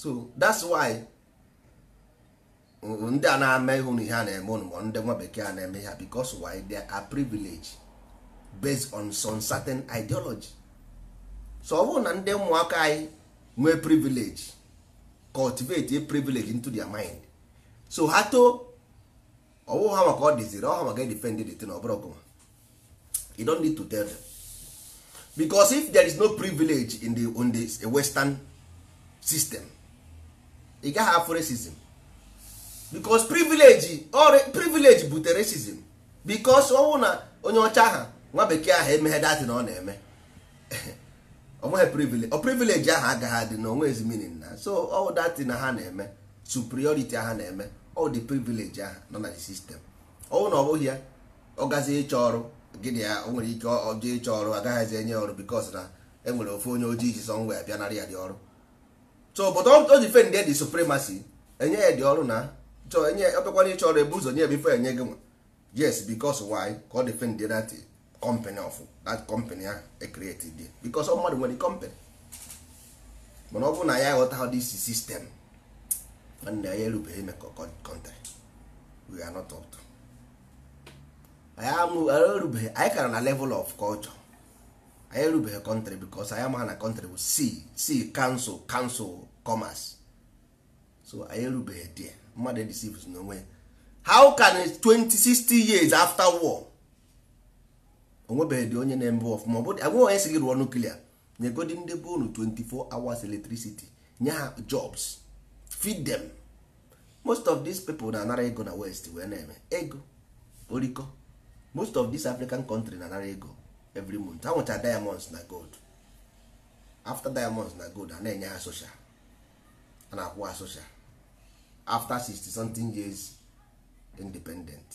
so that's why ndị a na-ama ihu na ihe a na-eme ndị nwa bekee a na-eme ha because why they are privilege based on some certain ideology so ọ bụrụ na ndị ụmụaka anyị nwee privilege cultivate a privilege into their mind so ha too ọwụ ha maka ọ dịziri ọ ha maka defend the thing ọbụrụ ọgụma you don't need to tell them because if there is no privilege in the, on the western system ị gaghị afọ racism because privilege or privilege butere racism because ọwụ na onye ọcha ha nwa bekee ahụ emeghe datị na ọ na-eme onweghị privilege ọ privilege ahụ agaghị adị na onwe ezi meaning na so ọ datị na ha na-eme superiority ha na-eme all the privilege ahụ nọ na the system ọnwụ na ọ bụghị ya ọ gazi ịchọ ọrụ gịnị ya o nwere ike ọjọọ ịchọ ọrụ agaghịzi enye ọrụ bikos na e nwere ofe onye ojii ji sọ ngwa ya bịanara ya dị ọrụ so but o ji fen dị supremacy enye ya dị ọrụ na chọọ enye ọbịakwana ịchọ ọrụ ebu ụzọ nye ya bifo enye gị nwa yes bikos why ka ọ dị fen dị company of that company ahụ ecreated bikos ọ mmadụ nwere company mana ọ bụ na ya aghọta this system nwanne anyị erubeghị emekọ kọntrị we are not up to anyị kara na level of culture anyị erubeghị kọntrị bikos anyị amaghị na kọntrị bụ si si kansụl kansụl commerce so anyị erubeghị there mmadụ edisives n'onwe how can 2060 years after war onwebeghị dị onye na-eme ọfụma ọ bụ agwụghị onye si gị rụọ nuklia nyegodi ndị bụ unu 24 hours electricity nye ha jobs feed them most of these people na-anara ego na west wee na-eme ego oriko most of these african country na-anara ego every month anwụcha diamonds na gold after diamonds na gold a na-enye ha social a na-akwụ ha social after 60 something years independent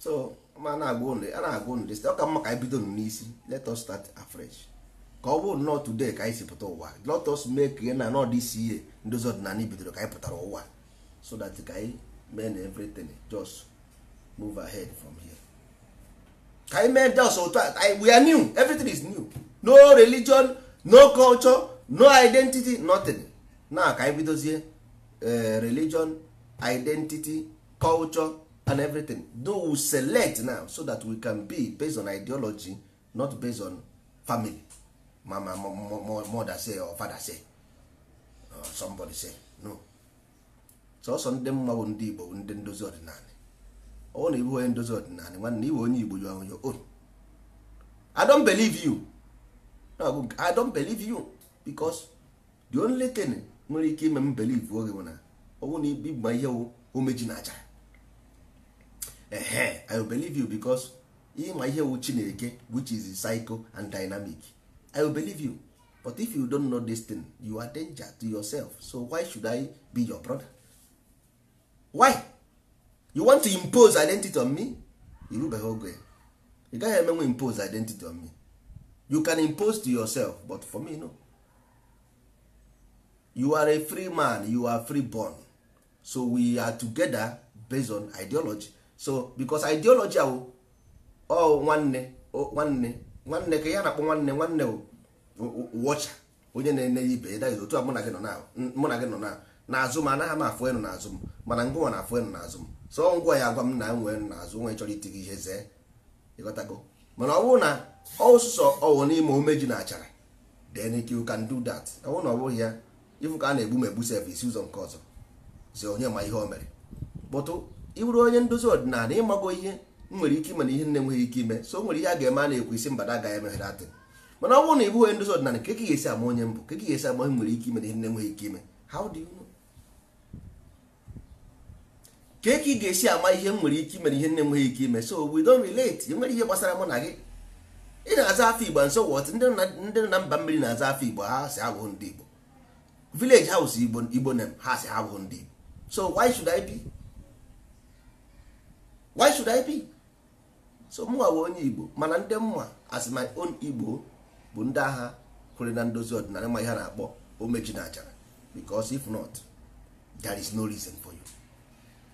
so ma na-agwa ụnụ ọ ka mma ka anyị bido n'isi let us start afresh ka ọ bụrụ today ka anyị si pụta ụwa let us make na nọ this year ndozi ọdịnala bidoro ka anyị pụtara ụwa so that ka anyị mee na everything just move ahead from here ka anyị mee just otu a we are new everything is new no religion no culture no identity nothing na ka anyị bidozie eh, religion identity culture and everything do we select now so that we can be based on ideology not based on family mama mother say or father say or somebody say no sọsọ ndị mma bụ ndị igbo ndị ndozi ọdịnala ọ na ibu onye ndozi ọdịnala nwanne iwe onye igbo jụọ onye on i don't believe you no, i don't believe you because the only thing nwere ike ime m believe oge bụ na ọnwụ na ibigba ihe omeji na aja ehe i believe you because ịma ihe wu chineke which is psycho and dynamic i will believe you but if you don't know this thing you are danger to yourself so why should i be your brother why you want to impose identity on me irubeghị oge ị gaghị emenwe impose identity on me you can impose to yourself but for me no you are a free man you are free born so we are together based on ideology so because ideology awo. oh nwanne nwanne nwanne ka ya na-akpọ nwanne nwanne wọcha onye na-enye ya ibe da otu a mụ na gị nọ na azụ m anaghị m afụ enu n'azụ m mana ngụnwa na afụ na n'azụ m so ngwa ya agwa m na na n'azụ nwe chọrọ iti gị ihe zee ịghọtago mana ọ bụrụ na ọsụsọ ọwụ n'ime omeji na achara then you can do that ọ bụrụ na ọ bụghị ya ịfụ ka a na-egbu m egbu sevisi ụzọ nke ọzọ zi onye ma ihe o mere bụtụ ịbụrụ onye ndozi ọdịnala ịmago ihe nwere ike ime na ihe nne nweghị ike ime so o nwere ihe a ga-eme a na-ekwu isi mbada agaghị emeghere atị mana ọ bụrụ na ịbụghị ndozi ọdịnala ka ka ga-esi ama onye mbụ ka ga-esi ama onye nwere ike ime na ihe nne nweghị ike ime how ka ka ị ga-esi ama ihe m nwere ike ime na ihe nne nweghị ike ime so we don't relate enwere ihe gbasara mụ na gị ị na-aza afọ igbo nso wọt ndị nọ na mba mmiri na-aza afọ igbo ha si abụghị ndị igbo village house igbo igbo nem ha si abụghị ndị igbo so why should i be why should i be so mụnwa bụ onye igbo mana ndị mma as my own igbo bụ ndị agha kwere na ndozi ọdịnala ma ihe na-akpọ omeji na achara because if not there is no reason for you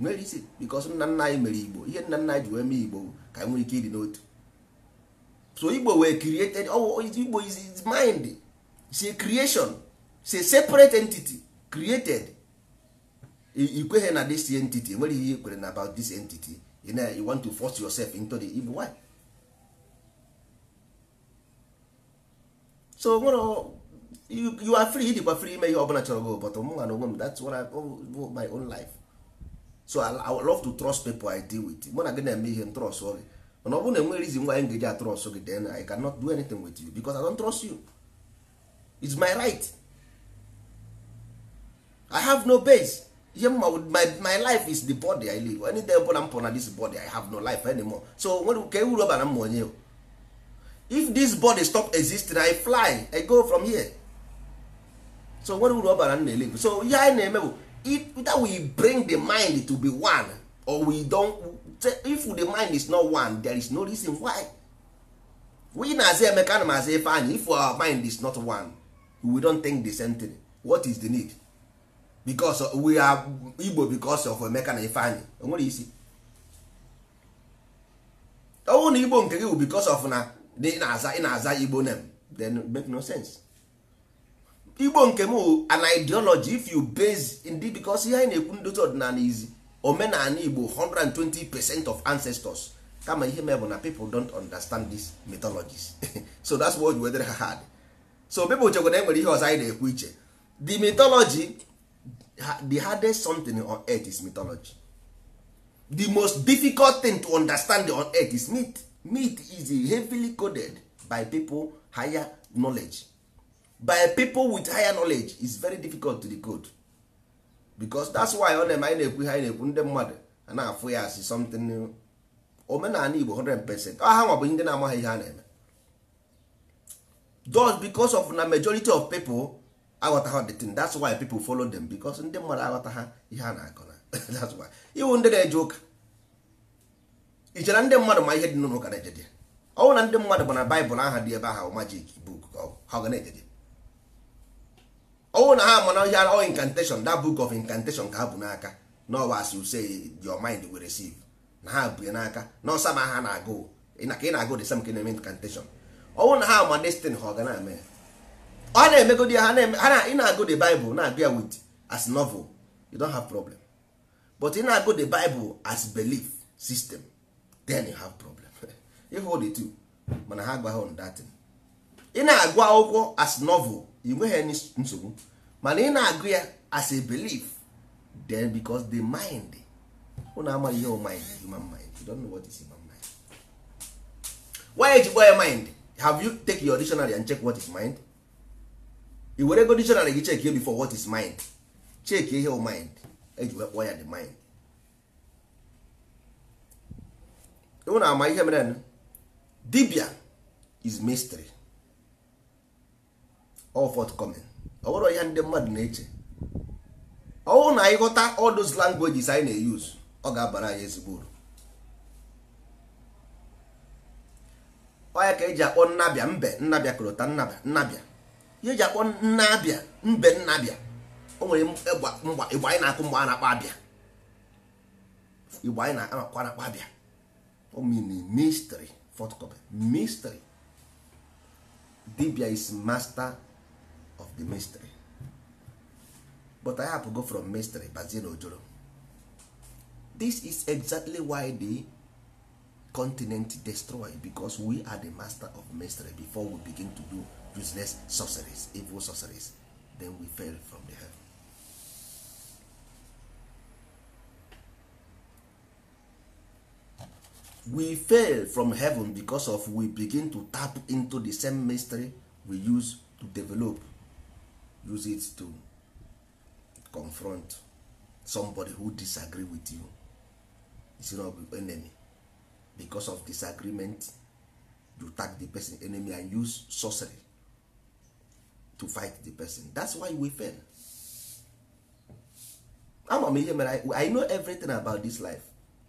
nwere isi because nna nna anyị mere igbo ihe nna nna anyị ji wee mee igbo ka nwere ike ịdị n'otu so igbo wee created igbo is his mind say creation say separate entity created ikweghị na this entity enweghị ihe ikwere na about this entity you know you want to force yourself into the evil why so you, you are free dịkwa free ime ihe ọbụla chọrọ go but mụnwa na onwe m that's what I do my own life so I, I love to trust people I deal with mụ na gị na-eme ihe m trust gị mana ọ bụrụ na enwere reason why m ga-eji atrust gị then I cannot do anything with you because I don't trust you it's my right I have no base ihe mma my my life is the body i live any day ọbụla m pụrụ na this body i have no life anymore so ka ewuru ọbara m onye if this body stop existing i fly i go from here so nwere uru ọbara m na-elive so ihe anyị na-eme bụ that we bring the mind to be one or we don't if the mind is not one there is no reason why we na-aza emeka na maza ife anyị if our mind is not one we don't think the same thing what is the need because we are Igbo because of Emeka na Ifeanyi onwere isi ọnwụ na Igbo nke gị bụ because of na ị na-aza ị na-aza Igbo name then make no sense Igbo nke m an ideology if you base ndị because ihe anyị na-ekwu ndozi ọdịnala izi omenala Igbo 120% percent of ancestors kama ihe mee bụ na people don't understand these mythologies so that's why we wetara ha hard so people chekwa na enwere ihe ọzọ anyị na-ekwu iche the mythology the hardest something on earth is mythology the most difficult thing to understand on earth is meat meat is heavily coded by people higher knowledge by people with higher knowledge is very difficult to decode because that's why ọ na-eme anyị na-ekwu ihe anyị na-ekwu ndị mmadụ a na-afụ ya asị something new omenala Igbo 100% ọ ha nwa ndị na-amaghị ihe a na-eme just because of na majority of people aghọtaghị the thing that's why people follow them because ndị mmadụ aghọta ha ihe a na-akọ na that's why iwu ndị na-eje ụka i chere ndị mmadụ ma ihe dị n'ụlọ ụka na-ejeje ọnwụ na ndị mmadụ bụ na baịbụl aha dị ebe ahụ majik book ha ga na-ejeje ọnwụ na ha mana ihe ọ incantation that book of incantation ka ha bụ n'aka na ọwa asị use your mind will receive na ha bụ n'aka na ọsa ma ha na-agụ ka ị na-agụ the same ka na-eme incantation ọnwụ na ha ma destin ha ọ ga na-eme ọ na-emegodi ya ha na ị na-agụ the Bible na-agụ ya with as novel you don't have problem but ị na-agụ the Bible as belief system then you have problem ịhụ the two mana ha agwaghị on that ị na-agụ akwụkwọ as novel ị nweghị nsogbu mana ị na-agụ ya as a belief then because the mind ụnụ amaghị ihe mind human mind you don't know what is human mind why eji kpọọ ya mind have you take your dictionary and check what is mind i were go dictionary gị chekie before what is mind chekie ihe o mind eji wee kpọọ ya the mind ụ na-ama ihe mere dibia is mystery all forthcoming ọ bụrụ ya ndị mmadụ na-eche ọ ọwụ na anyị ghọta all those languages anyị na-eyuzu ọ ga-abara anyị ezigbo uru ọ ya ka eji akpọ nnabịa mbe nnabịa korota nnabịa nnabịa ihe eji akpọ nna abịa mbe nna abịa o nwere igbo anyị na-akụ mgbe a na-akpọ abịa igbo anyị na-akwa na-akpọ abịa o mystery photocopy dibia is master of the mystery but i go from mystery bazie na ojoro this is exactly why the continent destroy because we are the master of mystery before we begin to do useless sorceries, evil sorceries, then we fell from the heaven. We fail from heaven because of we begin to tap into the same mystery we use to develop, use it to confront somebody who disagree with you. It's not your enemy. Because of disagreement, you tag the person enemy and use sorcery to fight the person that's why we fail ama m ihe mere i know everything about this life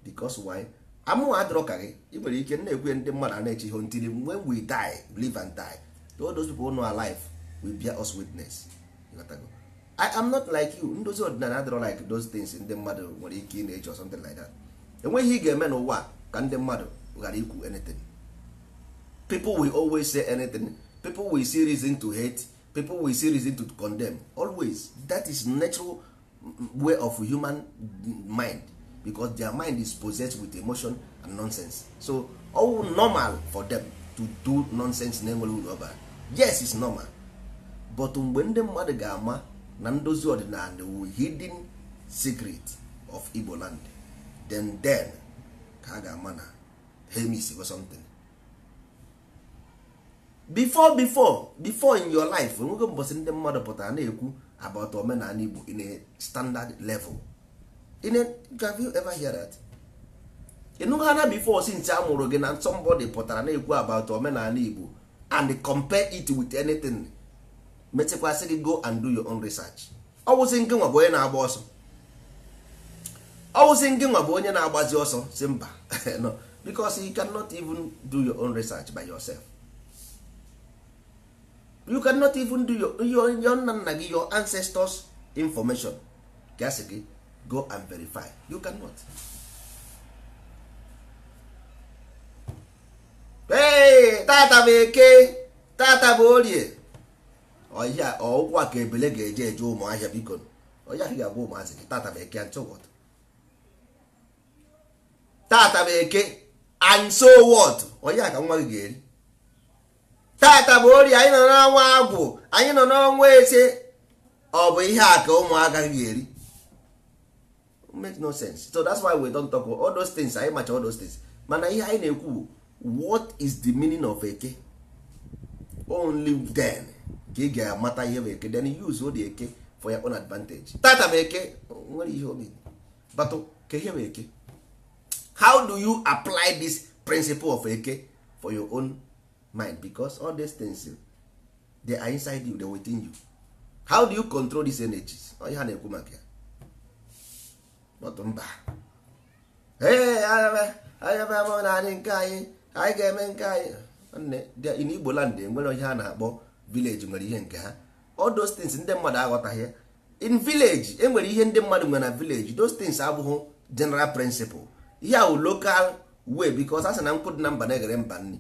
because why amụwa adịrọ ka gị ị nwere ike na-ekwe ndị mmadụ a na-eche ihe ntiri when we die live and die all those people know our life will bear us witness I am not like you ndozi ọdịnala adịrọ like those things ndị mmadụ nwere ike ị na-eche something like that enweghị ị ga-eme n'ụwa ka ndị mmadụ ghara ikwu anything people will always say anything people will see reason to hate people will see reason to condemn always that is natural way of human mind because their mind is possessed with emotion and nonsense so all normal for them to do nonsense na-enweghị uru yes is normal but mgbe ndị mmadụ ga-ama na ndozi ọdịnala wu hidden secret of Igbo land then then ka a ga-ama na hemis or something before before before in your life nwoke mbọsị ndị mmadụ pụtara na-ekwu about omenala Igbo in a standard level in a have you ever hear that ịnụghị ana before since a mụrụ gị na somebody pụtara na-ekwu about omenala Igbo and compare it with anything metekwasị gị go and do your own research ọ wụsị nke nwa bụ onye na-agba ọsọ ọ wụsị nke nwa bụ onye na-agbazi ọsọ si mba no because you cannot even do your own research by yourself. you cannot even do your your nna nna gị your ancestors information ka asị gị go and verify you cannot hey, tata bụ eke tata bụ orie ọya ọụkwụ a ka ebele ga-eje eje ụmụahịa biko ọya ahụ ga-agba ụmụazị gị tata bụ eke and so what tata bụ eke and so what ọya ka nwa gị ga-eri tata bụ ori anyị nọ n'ọnwa agwụ anyị nọ n'ọnwa eze ọ bụ ihe a ka ụmụaka gị eri make no sense so that's why we don't talk all those things anyị macha all those things mana ihe anyị na-ekwu what is the meaning of eke only then ka ị ga-amata ihe bụ eke then use odi eke for your own advantage tata bụ eke nwere ihe obi batụ ka ihe bụ eke how do you apply this principle of eke for your own mind because all these things they are inside you they are within you how do you control these energies onye ha na-ekwu maka ya bọtụ mba anyabama naanị nke anyị anyị ga-eme nke anyị in Igbo land enwere onye ha na-akpọ village nwere ihe nke ha all those things ndị mmadụ aghọtaghị in village enwere ihe ndị mmadụ nwere na village those things abụghị general principle ihe wụ local way because a sị na nkwụ dị na mba na-eghere mba nri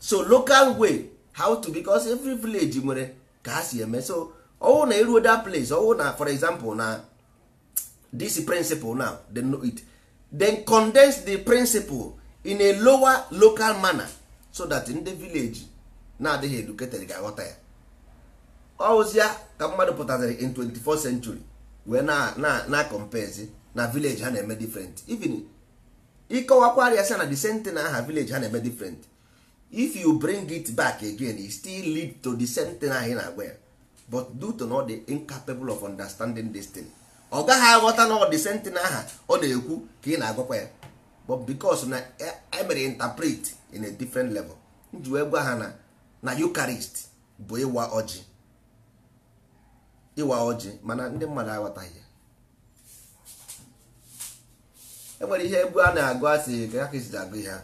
so local way how to because every village nwere ka ha si eme so ọwụ na iruo e that place ọwụ na for example na this principle now they know it then condense the principle in a lower local manner so that ndị village na-adịghị educated ga-aghọta ya ọwụzịa ka mmadụ pụtaziri in 24th century wee na na na compezi na village ha na-eme different even ịkọwakwarịa sị na the same thing na aha village ha na-eme different if you bring it back again it still lead to the same thing anyị na-agwa ya but due to not the incapable of understanding this thing ọ gaghị aghọta na ọ the same thing aha ọ na-ekwu ka ị na-agwakwa ya but because na emere e interpret in a different level nji wee gwa ha na na Eucharist bụ ịwa ọjị ịwa ọjị mana ndị mmadụ aghọtaghị ya e nwere ihe egwu a na-agụ asị ga ka esi agụ ihe ha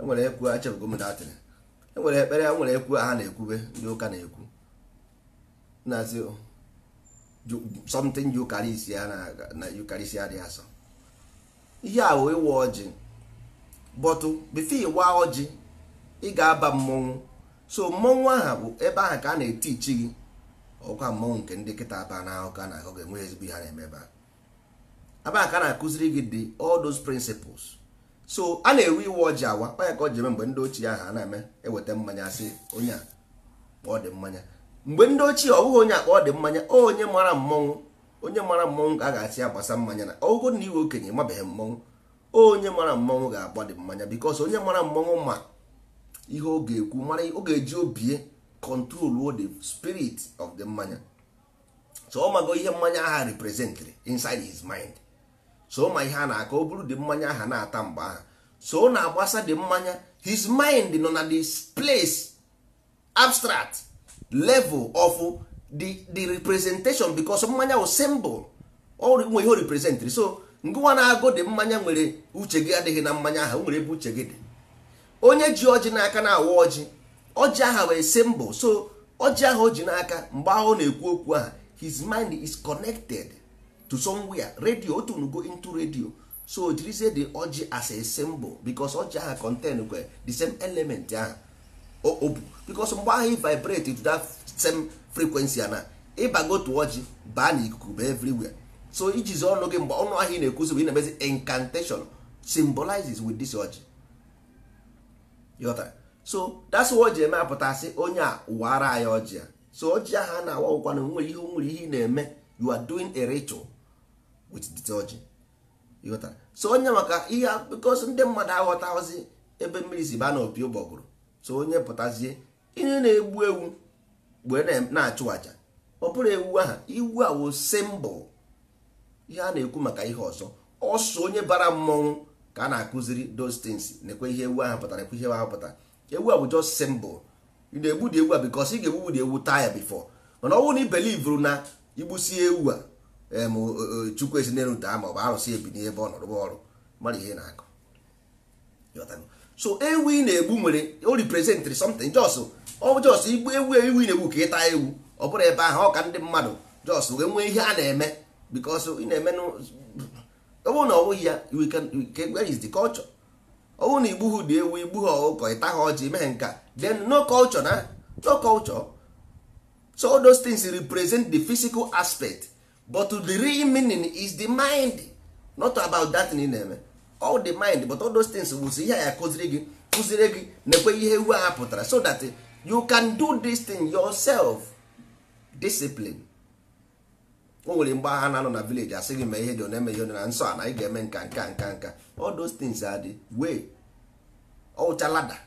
enwere ekwu achebugomdatịrị enwere ekpere ya nwere ekwu ha na-ekwube ndị ụka na-ekwu na-asị oh, something yukarisi ya na yukarisi adịghị asọ ihe ahụ ịwa ọjị bọtụ bifo ịwa ọjị ị ga-aba mmọnwụ so mmọnwụ aha bụ ebe ahụ ka a na ichi gị ọkwa mmọnwụ nke ndị kịta aba na ahụ ka na-akọ ga-enwe ezigbo ihe na-eme ebe a ebe ka a na-akụziri gị dị all those principles so a na-ewe iwe ọjị awa kpanya ka ọ ji eme mgbe ndị ochie aha na-eme eweta mmanya sị onye a ka dị mmanya mgbe ndị ochie ọ bụghị onye a ọdị ọ dị mmanya onye mara mmọnwụ onye mara mmọnwụ ka a ga-asị ya gbasa mmanya na ọgụgụ na iwe okenye mabeghị mmọnwụ onye mara mmọnwụ ga-agba dị mmanya bikos onye mara mmọnwụ ma ihe ọ ga-ekwu mara ọ ga-eji obie control the spirit of the mmanya so ọ mago ihe mmanya aha representrị insid his mind so ma ihe a na-akọ o buru dị mmanya aha na-ata mgbe aha so na-agbasa dị mmanya his mind nọ na the place abstract level of the the representation because mmanya wụ symbol nwe ihe o representịrị so ngụwa na-agụ dị mmanya nwere uche gị adịghị na mmanya aha nwere ebe uche gị dị onye ji ọjị n'aka na-awa ọjị ọjị aha wee symbol so ọjị aha o ji n'aka mgbe ahụ ọ na-ekwu okwu aha his mind is connected to somewhere radio otu go into radio so jirizie the ọjị as a symbol because ọjị aha contain kwe the same element ahụ o bu because mgbe ahụ ị vibrate to that same frequency ana ịbago to ọjị baa na ikuku ba everywhere so ijizi ọnụ gị mgbe ọnụ ahịa ị na-ekwuzi bụ ị na-emezi incantation symbolizes with this ọjị yọta so that's why o ji eme apụtasị onye a ụwara anyị ọjị a so ọjị ahụ a na-awa ụkwana nwere ihe nwere ihe ị na-eme you are doing a ritual with theology ịghọtara so onye maka ihe bikos ndị mmadụ aghọtaghọzi ebe mmiri si baa n'opi ụbọgụrụ so onye pụtazie ihe na-egbu ewu mgbe na-achụ aja ọ bụrụ ewu aha iwu a wo simbụl ihe a na-ekwu maka ihe ọzọ ọsọ onye bara mmọnwụ ka a na-akụziri those things nekwe ihe ewu ahụ pụtara ekwe ihe ahụ ewu a bụ just simbụl ị na-egbu dị ewu a bikos ị ga-egbugbudi ewu taya ya bifọ mana ọ bụrụ na i na igbusi ewu a chukwu ezinelute ma ọ bụ arụsị ebi n'ebe ọ nọrọ ọrụ mara ihe na-akọ so ewu ị na-egbu nwere o reprezentịrị something jos ọ jos igbu ewu ewu ị na-egbu ka ịta ewu ọ bụrụ ebe ahụ ọ ka ndị mmadụ jos wee nwee ihe a na-eme because ị na-eme ọ bụrụ na ọ bụghị ya where is the culture ọ bụrụ na igbu ha dị ewu igbu ha ọkụkọ ịta ha ọjị mee nka then no culture na no culture so those things represent the physical aspect but the real meaning is the mind not about that thing na-eme all the mind but all those things wụzi ihe ya kụziri gị kụziri gị na-ekwe ihe iwu ha pụtara so that you can do this thing yourself discipline o nwere mgbe agha na-anọ na village asị gị ihe dị na-eme ihe na nsọ a na ị ga-eme nka nka nka nka all those things are the way ọwụcha lada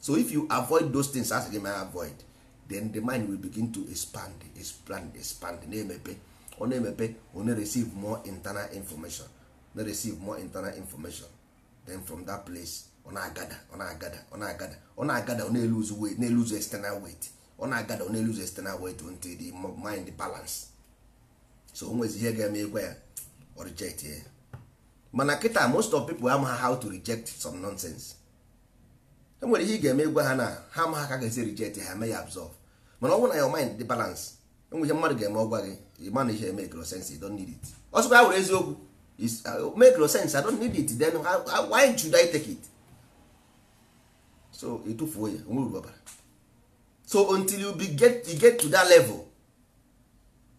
so if you avoid those things asị gị mee avoid then the mind will begin to expand expand expand na-emepe ọ na-emepe ọ na-receive more internal information na receive more internal information then from that place ọ na-agada ọ na-agada ọ na-agada ọ na-agada ọ na-eluze weight na-eluze external weight ọ na-agada ọ na-eluze external weight until the mind balance so o nwezi ihe ga-eme ịgwa ya ọ reject ya mana kịta most of people amagha how to reject some nonsense enwere ihe ị ga-eme ịgwa ha na ha ma ha ka ga-esi reject ha mee ya absorb mana ọ bụrụ na your mind dị balance ihe mmadụ ga-eme ọgwa gị ịma na ihe make no sense you don't need it ọ sịkwa ya were eziokwu uh, make no sense I don't need it then why should I take it so ịtụfuo e ya onwe uru so until you be get, you get to that level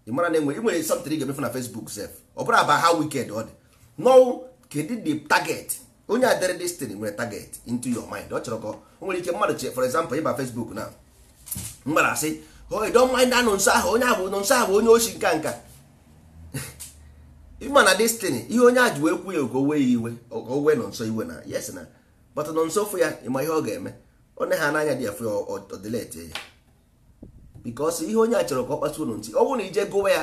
ị mara na enwere nwere something ị ga-emefu na Facebook sef ọ bụrụ aba how wicked ọ dị no kedu the target onye a dere destin nwere target into your mind ọ chọrọ ka o nwere ike mmadụ for example ịba Facebook na mgbara asị don't mind anụ nsọ ahụ onye ahụ nọ nso ahụ onye ochi nka nka ịma na destiny ihe onye a ji wee kwu ya ogo owe ya iwe owe nọ nso iwe na yes na but nọ nso fụ ya ịma ihe ọ ga-eme na ha n'anya dị ya fụ ya ọdịletie ya because ihe onye a chọrọ ka ọ kpasuo ntị ọ bụrụ na ije gụwa ya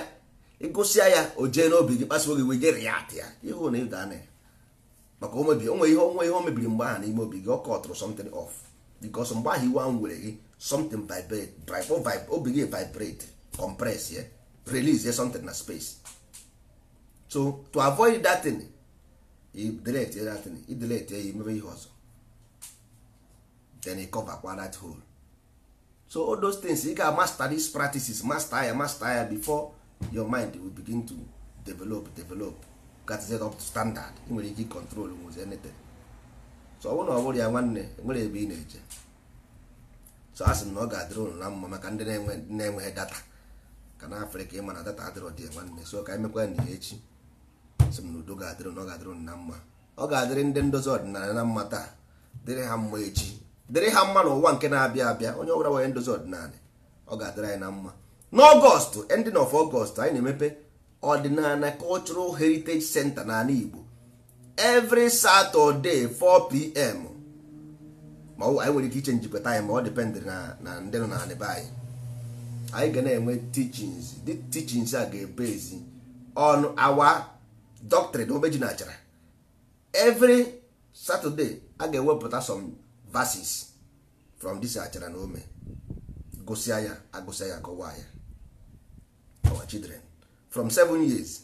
ịgụsịa ya o jee n'obi gị kpasuo gị wee gere ya atị ya ịhụ na ịda anya ya maka o onwe ihe o mebiri mgbe ahụ n'ime obi gị ọ kọtụrụ something off because mgbe ahụ iwe ahụ were gị something vibrate o oh, oh, begin vibrate compress yeah release yeah something na space so to avoid that thing i delete that thing i delete ya you ihe ọzọ then i cover kwa that hole so all those things you ga master these practices master ya master ya before your mind will begin to develop develop got set up to standard i nwere ike control nwụzi anything so ọ bụrụ na ọ bụrụ ya nwanne nwere ebe ị na-eje so a sị m na ọ ga-adịrị ụnụ na mma maka ndị na-enweghị data ka na afrịka ịma na data adịrọ dị nwanne so ka emekwa na echi sị m na udo ga-adịrị ụnụ ọ ga-adịrị ụnụ na mma ọ ga-adịrị ndị ndozi ọdịnala na mma taa dịrị ha mma echi dịrị ha mma na ụwa nke na-abịa abịa onye ọbụla nwere ndozi ọdịnala ọ ga-adịrị anyị na mma n'ọgọstụ ending of ọgọstụ anyị na-emepe ọdịnala cultural heritage center n'ala igbo every saturday 4pm ma anyị nwere ike iche njikọta anyị ma ọ dependịrị na ndị nọ na be anyị anyị ga na-enwe teachings dị teachings a ga-ebe ezi on our doctrine omeji na achara every saturday a ga-ewepụta some verses from this achara na ome gosi ya agụsịa ya kọwaa ya our children from seven years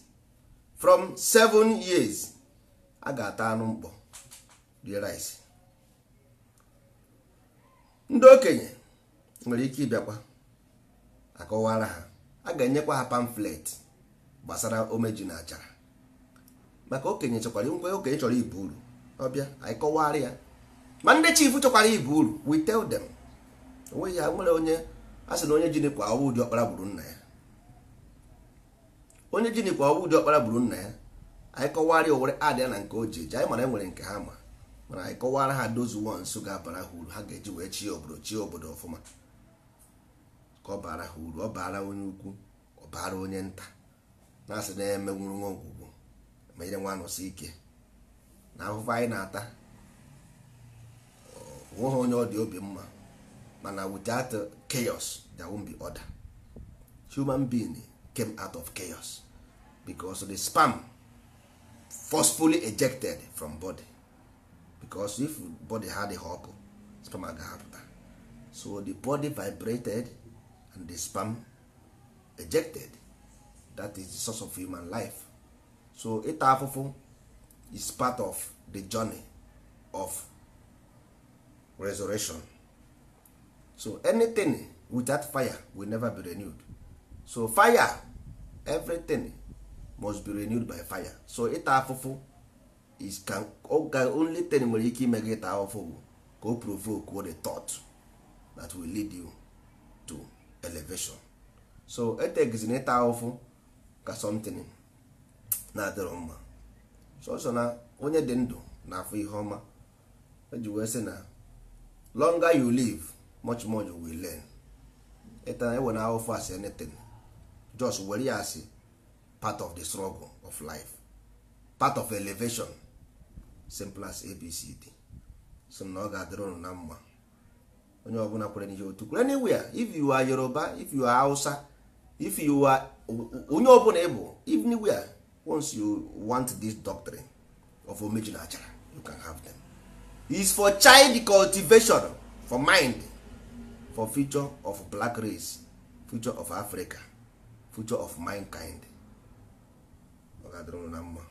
from seven years a ga-ata anụ mkpọ rie rice ndị okenye nwere ike ịbịakwa akọwara ha a ga-enyekwa ha pamflet gbasara omeju na achara maka okenye chọkwara nkwe okenye chọrọ ibu uru ọbịa anyị kọwara ya ma ndị chifu chọkwara ibu uru we tell onweghị ya nwere onye a sị na onye jinikwa ọwụ ụdị ọkpara gburu nna ya onye jinikwa ọwụ ụdị ọkpara gburu nna ya anyị kọwara ya adịa na nke o ji eji anyị mara enwere nke ha ma mana anyị kọwara ha dozu ones ga-abara ha uru ha ga-eji wee chi obodo chi obodo ọfụma ka ọ bara ha uru ọ bara onye ukwu ọ bara onye nta na-asị na-eme nwụrụ nwa ọgwụgwụ ma nyere nwa ike na ahụhụ anyị na-ata ha onye ọ dị obi mma mana without chaos there won't be order human being came out of chaos because the spam forcefully ejected from body because if body ha adịghị ọkụ sperm ga-apụta so the body vibrated and the spam ejected that is the source of human life so ịta afụfụ is part of the journey of resurrection so anything without fire will never be renewed so fire everything must be renewed by fire so ịta afụfụ is ka only ten nwere ike ime gị taa go bụ ka o provoke the thought that will lead you to elevation so etegizina ịta ọfụ ka something na-adịrọ mma sọsọ na onye dị ndụ na afọ ihe ọma eji wee sị na longer you live much more you will learn ịtana e ewe na ahụfụ as anything just were ya as part of the struggle of life part of elevation simple as abcd so na ọ ga-adịrị ụnụ na mma onye ọbụla kwere n'ihe otu kwere anywhere if you are yoruba if you are hausa if you are onye ọbụla ịbụ anywhere once you want this doctrine of omeji na achara you can have them is for child cultivation for mind for future of black race future of africa future of mankind ọ ga-adịrị ụnụ na mma